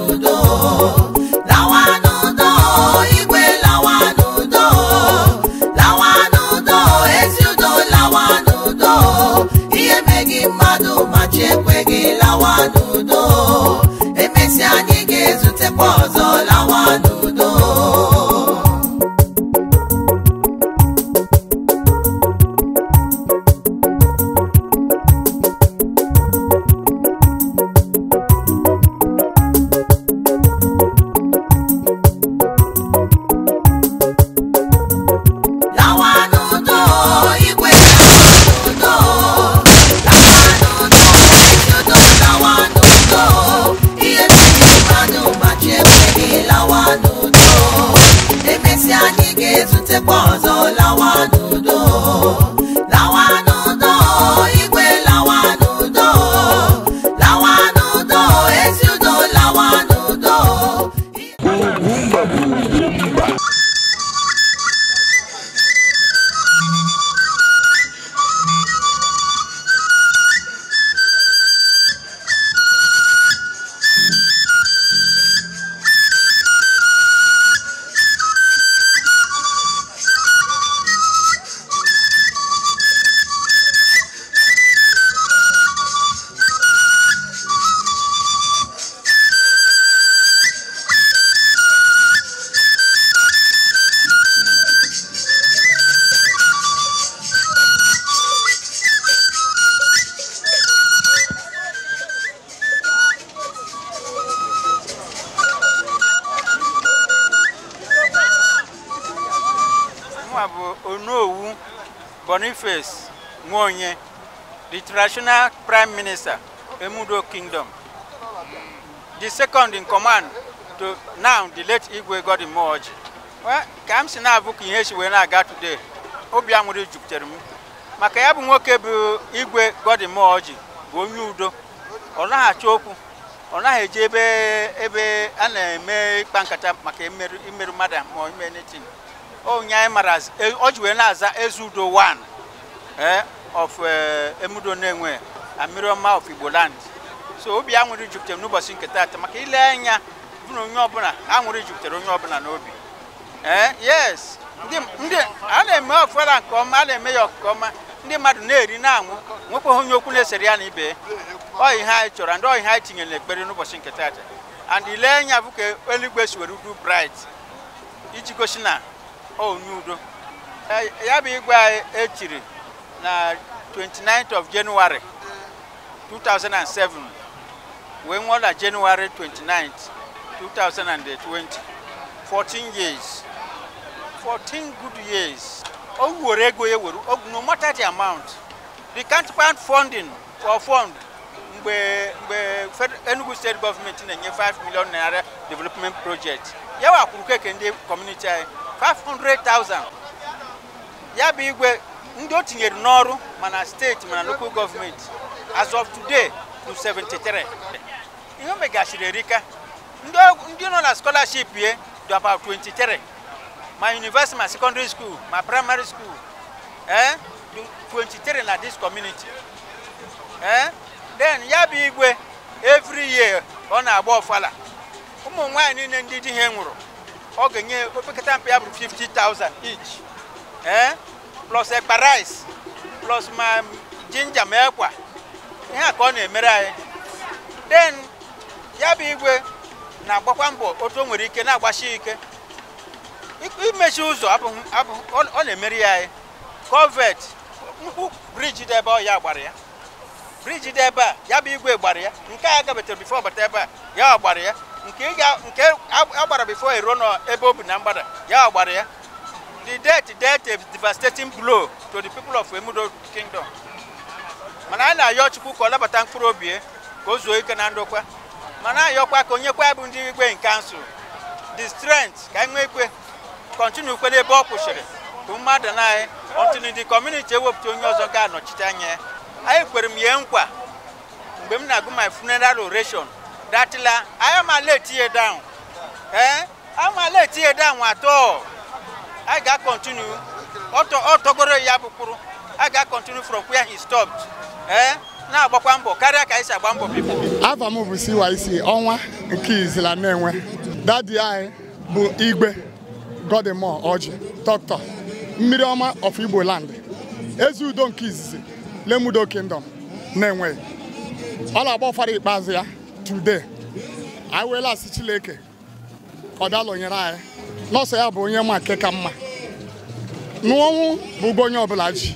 national prime minister, Emudo Kingdom. The second in command to now the late Igwe Godin Moji. Well, ka m si na-abụka ihe si wee na-aga today, obi aṅụrị jupụtara m maka ya bụ nwoke bụ Igwe Godin Moji bụ onye udo ọ naghị achọ okwu ọ naghị ebe ebe a na-eme ịkpa nkata maka imerụ mmadụ ma ime netin onye anyị mara ọ ji na-aza eze udo 1 of eh, emudo Nenwe and of Igbo land so obi aṅụrị jupụtara n'ụbọchị nke taata maka ile anya bụ na onye ọbụla aṅụrị jupụtara onye ọbụla n'obi ee eh, yes ndị a na-eme ọfụla nke ọma a na-eme ya nke ọma ndị mmadụ na-eri na-aṅụ nwekwaghị onye okwu na-esere ya na ibe ọ anyị chọrọ ndị ọ ihe anyị tinyere n'ekpere n'ụbọchị nke taata and ile anya bụ ka eluigwe si were udu bright iji gosi na onye udo eh, ya bụ igwe anyị echiri na 29th of January 2007 when was that January 29th 2020 14 years 14 good years no matter the amount the can't find funding for fund we, we, Enugu state government na-enye 5 million naira development project ya wakwuru keke ndị community anyị 500,000 Yeah, bụ igwe ndị o tinyere n'ọrụ mana steeti mana local gọọmenti as of today to 73 ihe o megachiri erika ndị nọ na scholarship ye dị about 23 ma university ma secondary school ma primary school eh 23 na dis community eh then ya bụ igwe every year ọ na-agba ọfala ụmụ nwaanyị niile ndị di ha nwụrụ ọ ga-enye opekata mpe ya bụrụ 50,000 each eh plus ekpa rice plus ma jinja ma ekwa ihe a ka ọ na-emere anyị den ya bụ igwe na-agbakwa mbọ otu o nwere ike na-agbasi ike imechi ụzọ ọ na emeri ya anyị kovet nkwu briji dị ebe gbara ya briji dị ebe a ya bụ igwe gbara ya nke a gabetere bifo bata ebe a ya gbara ya nke a gbara bifo eruo n'ebe o bi na mgbada ya gbara ya The death death dealt a devastating blow to the people of Emudo Kingdom. mana anyị na-ayọ Chukwu ka ọ labata mkpụrụ obi ka o zuo ike na ndokwa mana ayọkwa ka onye kwa bụ ndị igwe nke kansụl the strength ka anyị nwee ikwe kọntinu kwe n'ebe ọ kwụsịrị bụ mmadụ na anyị ọtụnụ ndị kọmuniti ewepụta onye ọzọ ga-anọchite anya ya anyị kwere m ihe nkwa mgbe m na-agụ my funeral oration datịla anyị amala etinye down ee amala etinye down atọ I got continue. Otogoro ya bụkwuru. I got continue from where he stopped. Eh? Na-agbakwa mbọ karịa ka anyị si agba mbọ bifo. Afa m bụ CYC ọnwa nke izila na-enwe. Dadi anyị bụ Igwe Godimore Ọjị Dr. Mmiri ọma of Igbo land. Ezi udo nke izizi Lemudo Kingdom na-enweghị. Ọ na-agba ọfara ikpeazụ ya today. Anyị weela asị Chineke ọ nyere anyị nọọsụ ya bụ onye ma nke ka mma n'ọnwụ bụ onye ọbụla ji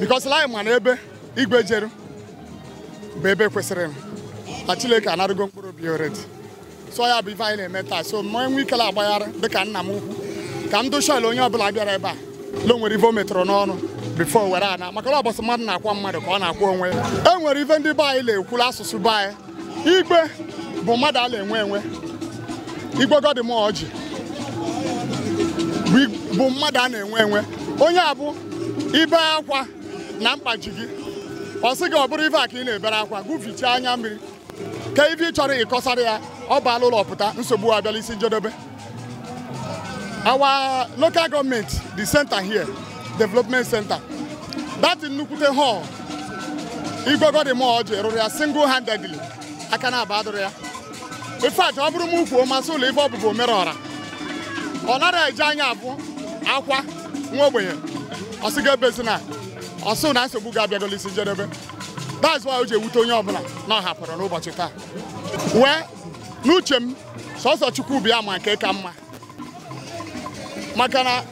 bikọsi lai ma na ebe igwe jeru bụ ebe kwesịrị na Chineke anarụgo mkpụrụ obi oredi so ya bụ ife anyị na-eme taa so ma enwe ikele agbagharị dịka nna m ukwu ka m dochil onye ọbụla bịara ebe a lo nwere ife o metụrụ n'ọnụ bifo were ana maka na ọbọsị mmadụ na-akwa mmadụ ka ọ na-akwa onwe ya e nwere ife ndị be anyị na-ekwula asụsụ be anyị igwe bụ mmadụ a na-enwe enwe igwe godi m ọjị bụ mmadụ a na-enwe enwe onye a bụ ibe akwa na mkpaji gị ọ sị gị ọ bụrụ ife a ka ị na-ebere akwa gụfichaa anya mmiri ka ife ị chọrọ ịkọsara ya ọ baala ụlọ pụta nsogbu abịala isi njedebe our local government the center here development center that nnukwute hall igwegodi mall ji rụrụ ya single handedly aka na-aba adụrụ ya ife a ọ bụrụ m ukwu masị ụlọ ife ọbụbụ mere ọra ọ nara eje anya abụ akwa nwa ogbenye ọsị ga-ebezi na ọsụ na nsogbu ga-abịagolo isi njedebe that's why o ji ewute onye ọbụla na ọ hapụrụ n'ụbọchị taa wee n'uche m sọsọ chukwu bịa ma nke ka mma maka na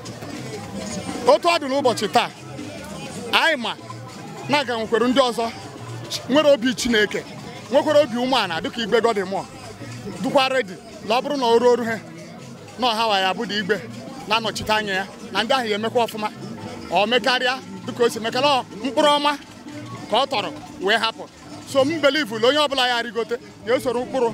otu ọ dị n'ụbọchị taa anyị ma na-aga nwekwere ndị ọzọ nwere obi chineke nwekwere obi umeala dịka dị mụọ dụkwa redi na ọ bụrụ na o ruo oru ha na ọha wa ya abụda igwe na-anọchite anya ya na ndị ahụ ya emekwa ọfụma ọ mekarịa dịka o si mekara mkpụrụ ọma ka ọ tọrọ wee hapụ so m belivu na onye ọbụla ya rigote ya esoro mkpụrụ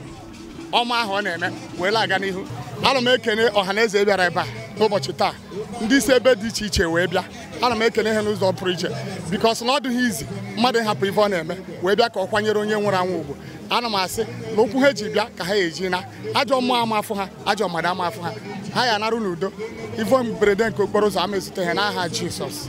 ọma ahụ ọ na-eme wee laga n'ihu ana m ekene ọha na eze e bịara ebe a n'ụbọchị taa ndị isi ebe dị iche iche wee bịa ana m ekene ha n'ụzọ pụrụ iche bikos na ọ dịghị izi mmadụ ịhapụ ife ọ na-eme wee bịa ka ọ kwanyere onye nwụrụ anwụ ugwu anụmasị m asị na okwu ha eji bịa ka ha eji na ajọ mmụọ ama afụ ha ajọ mmadụ ama afụ ha ha ya anarụ n'udo ivo mberede nke okporo ụzọ ama ezute ha n'aha Jizọs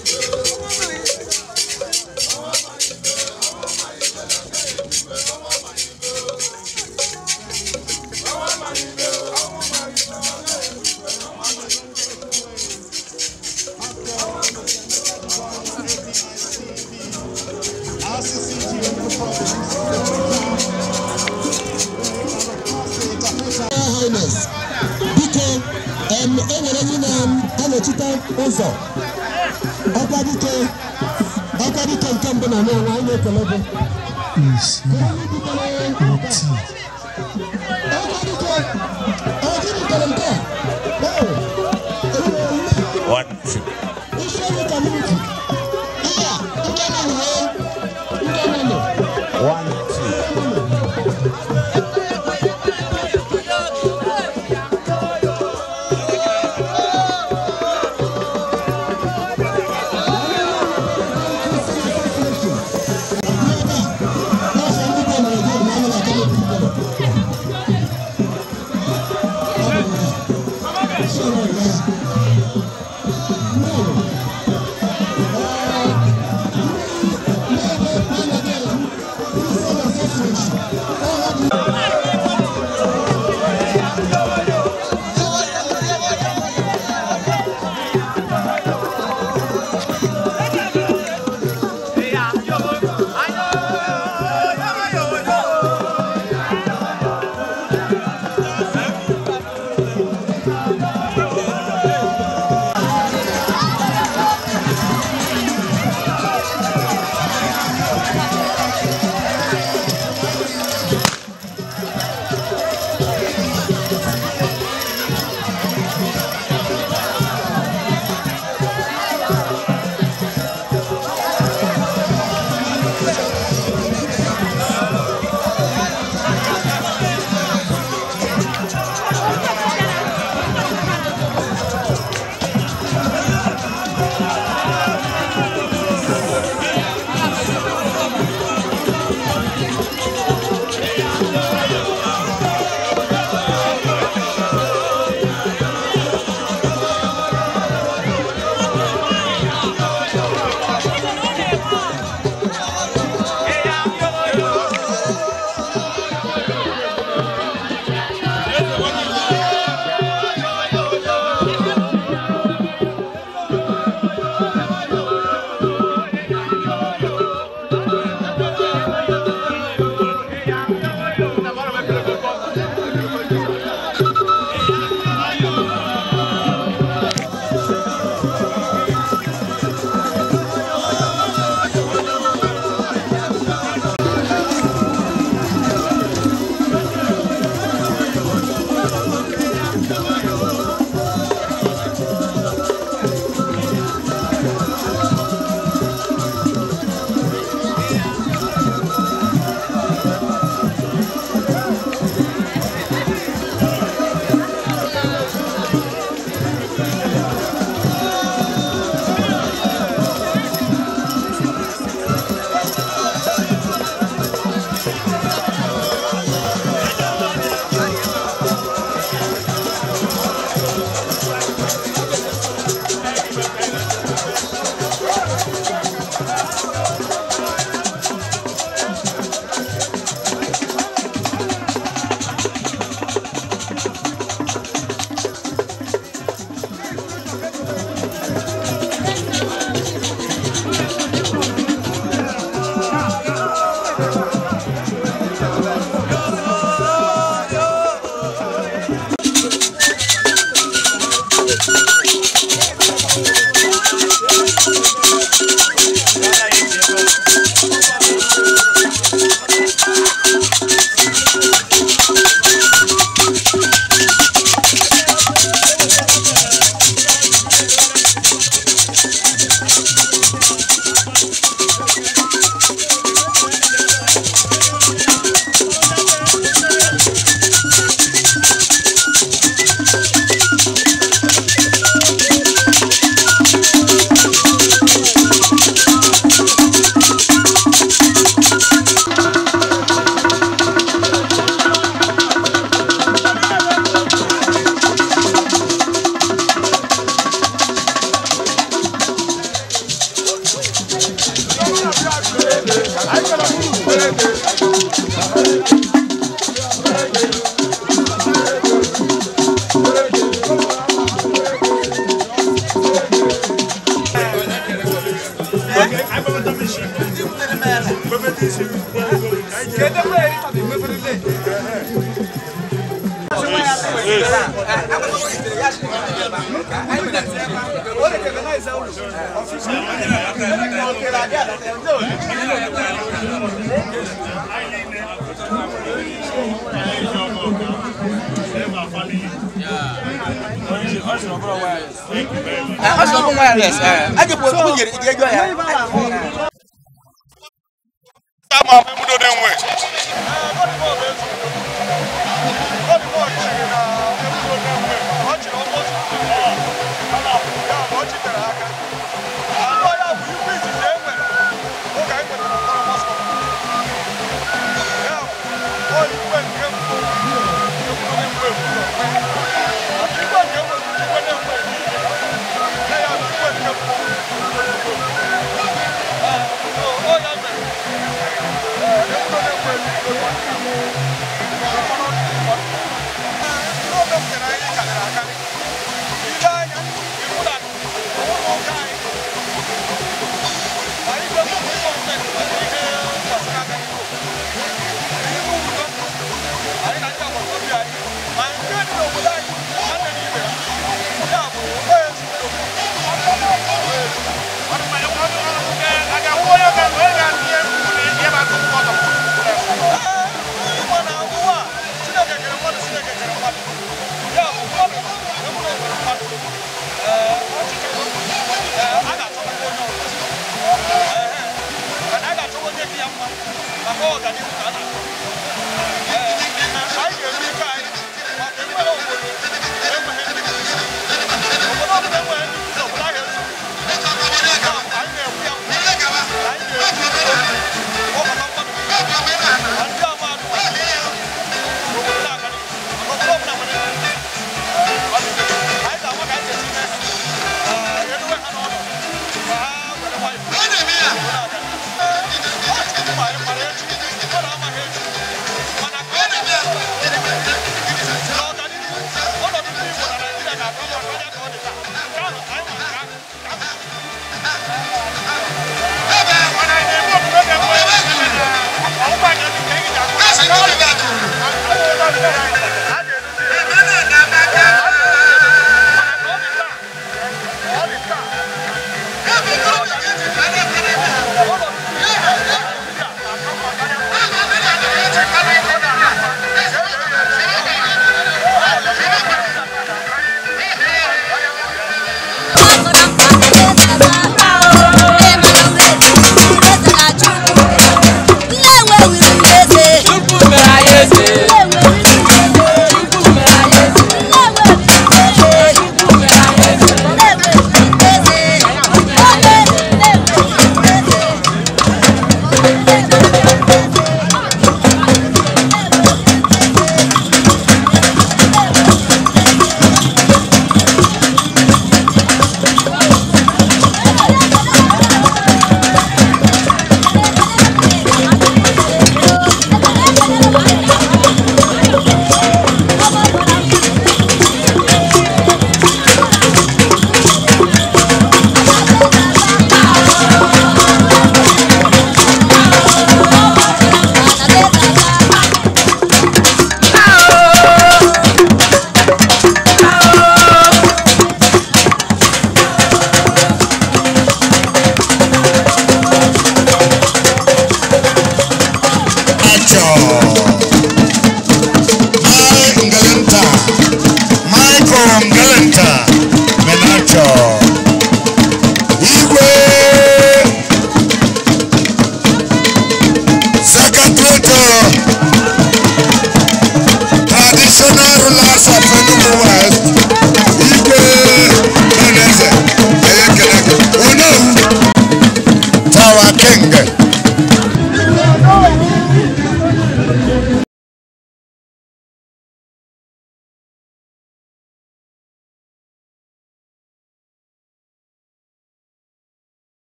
biko enwere onye na-anọchite ụzọ ọkwa dike ọkwa dike nke mbụ na nwa anyị na-ekele gị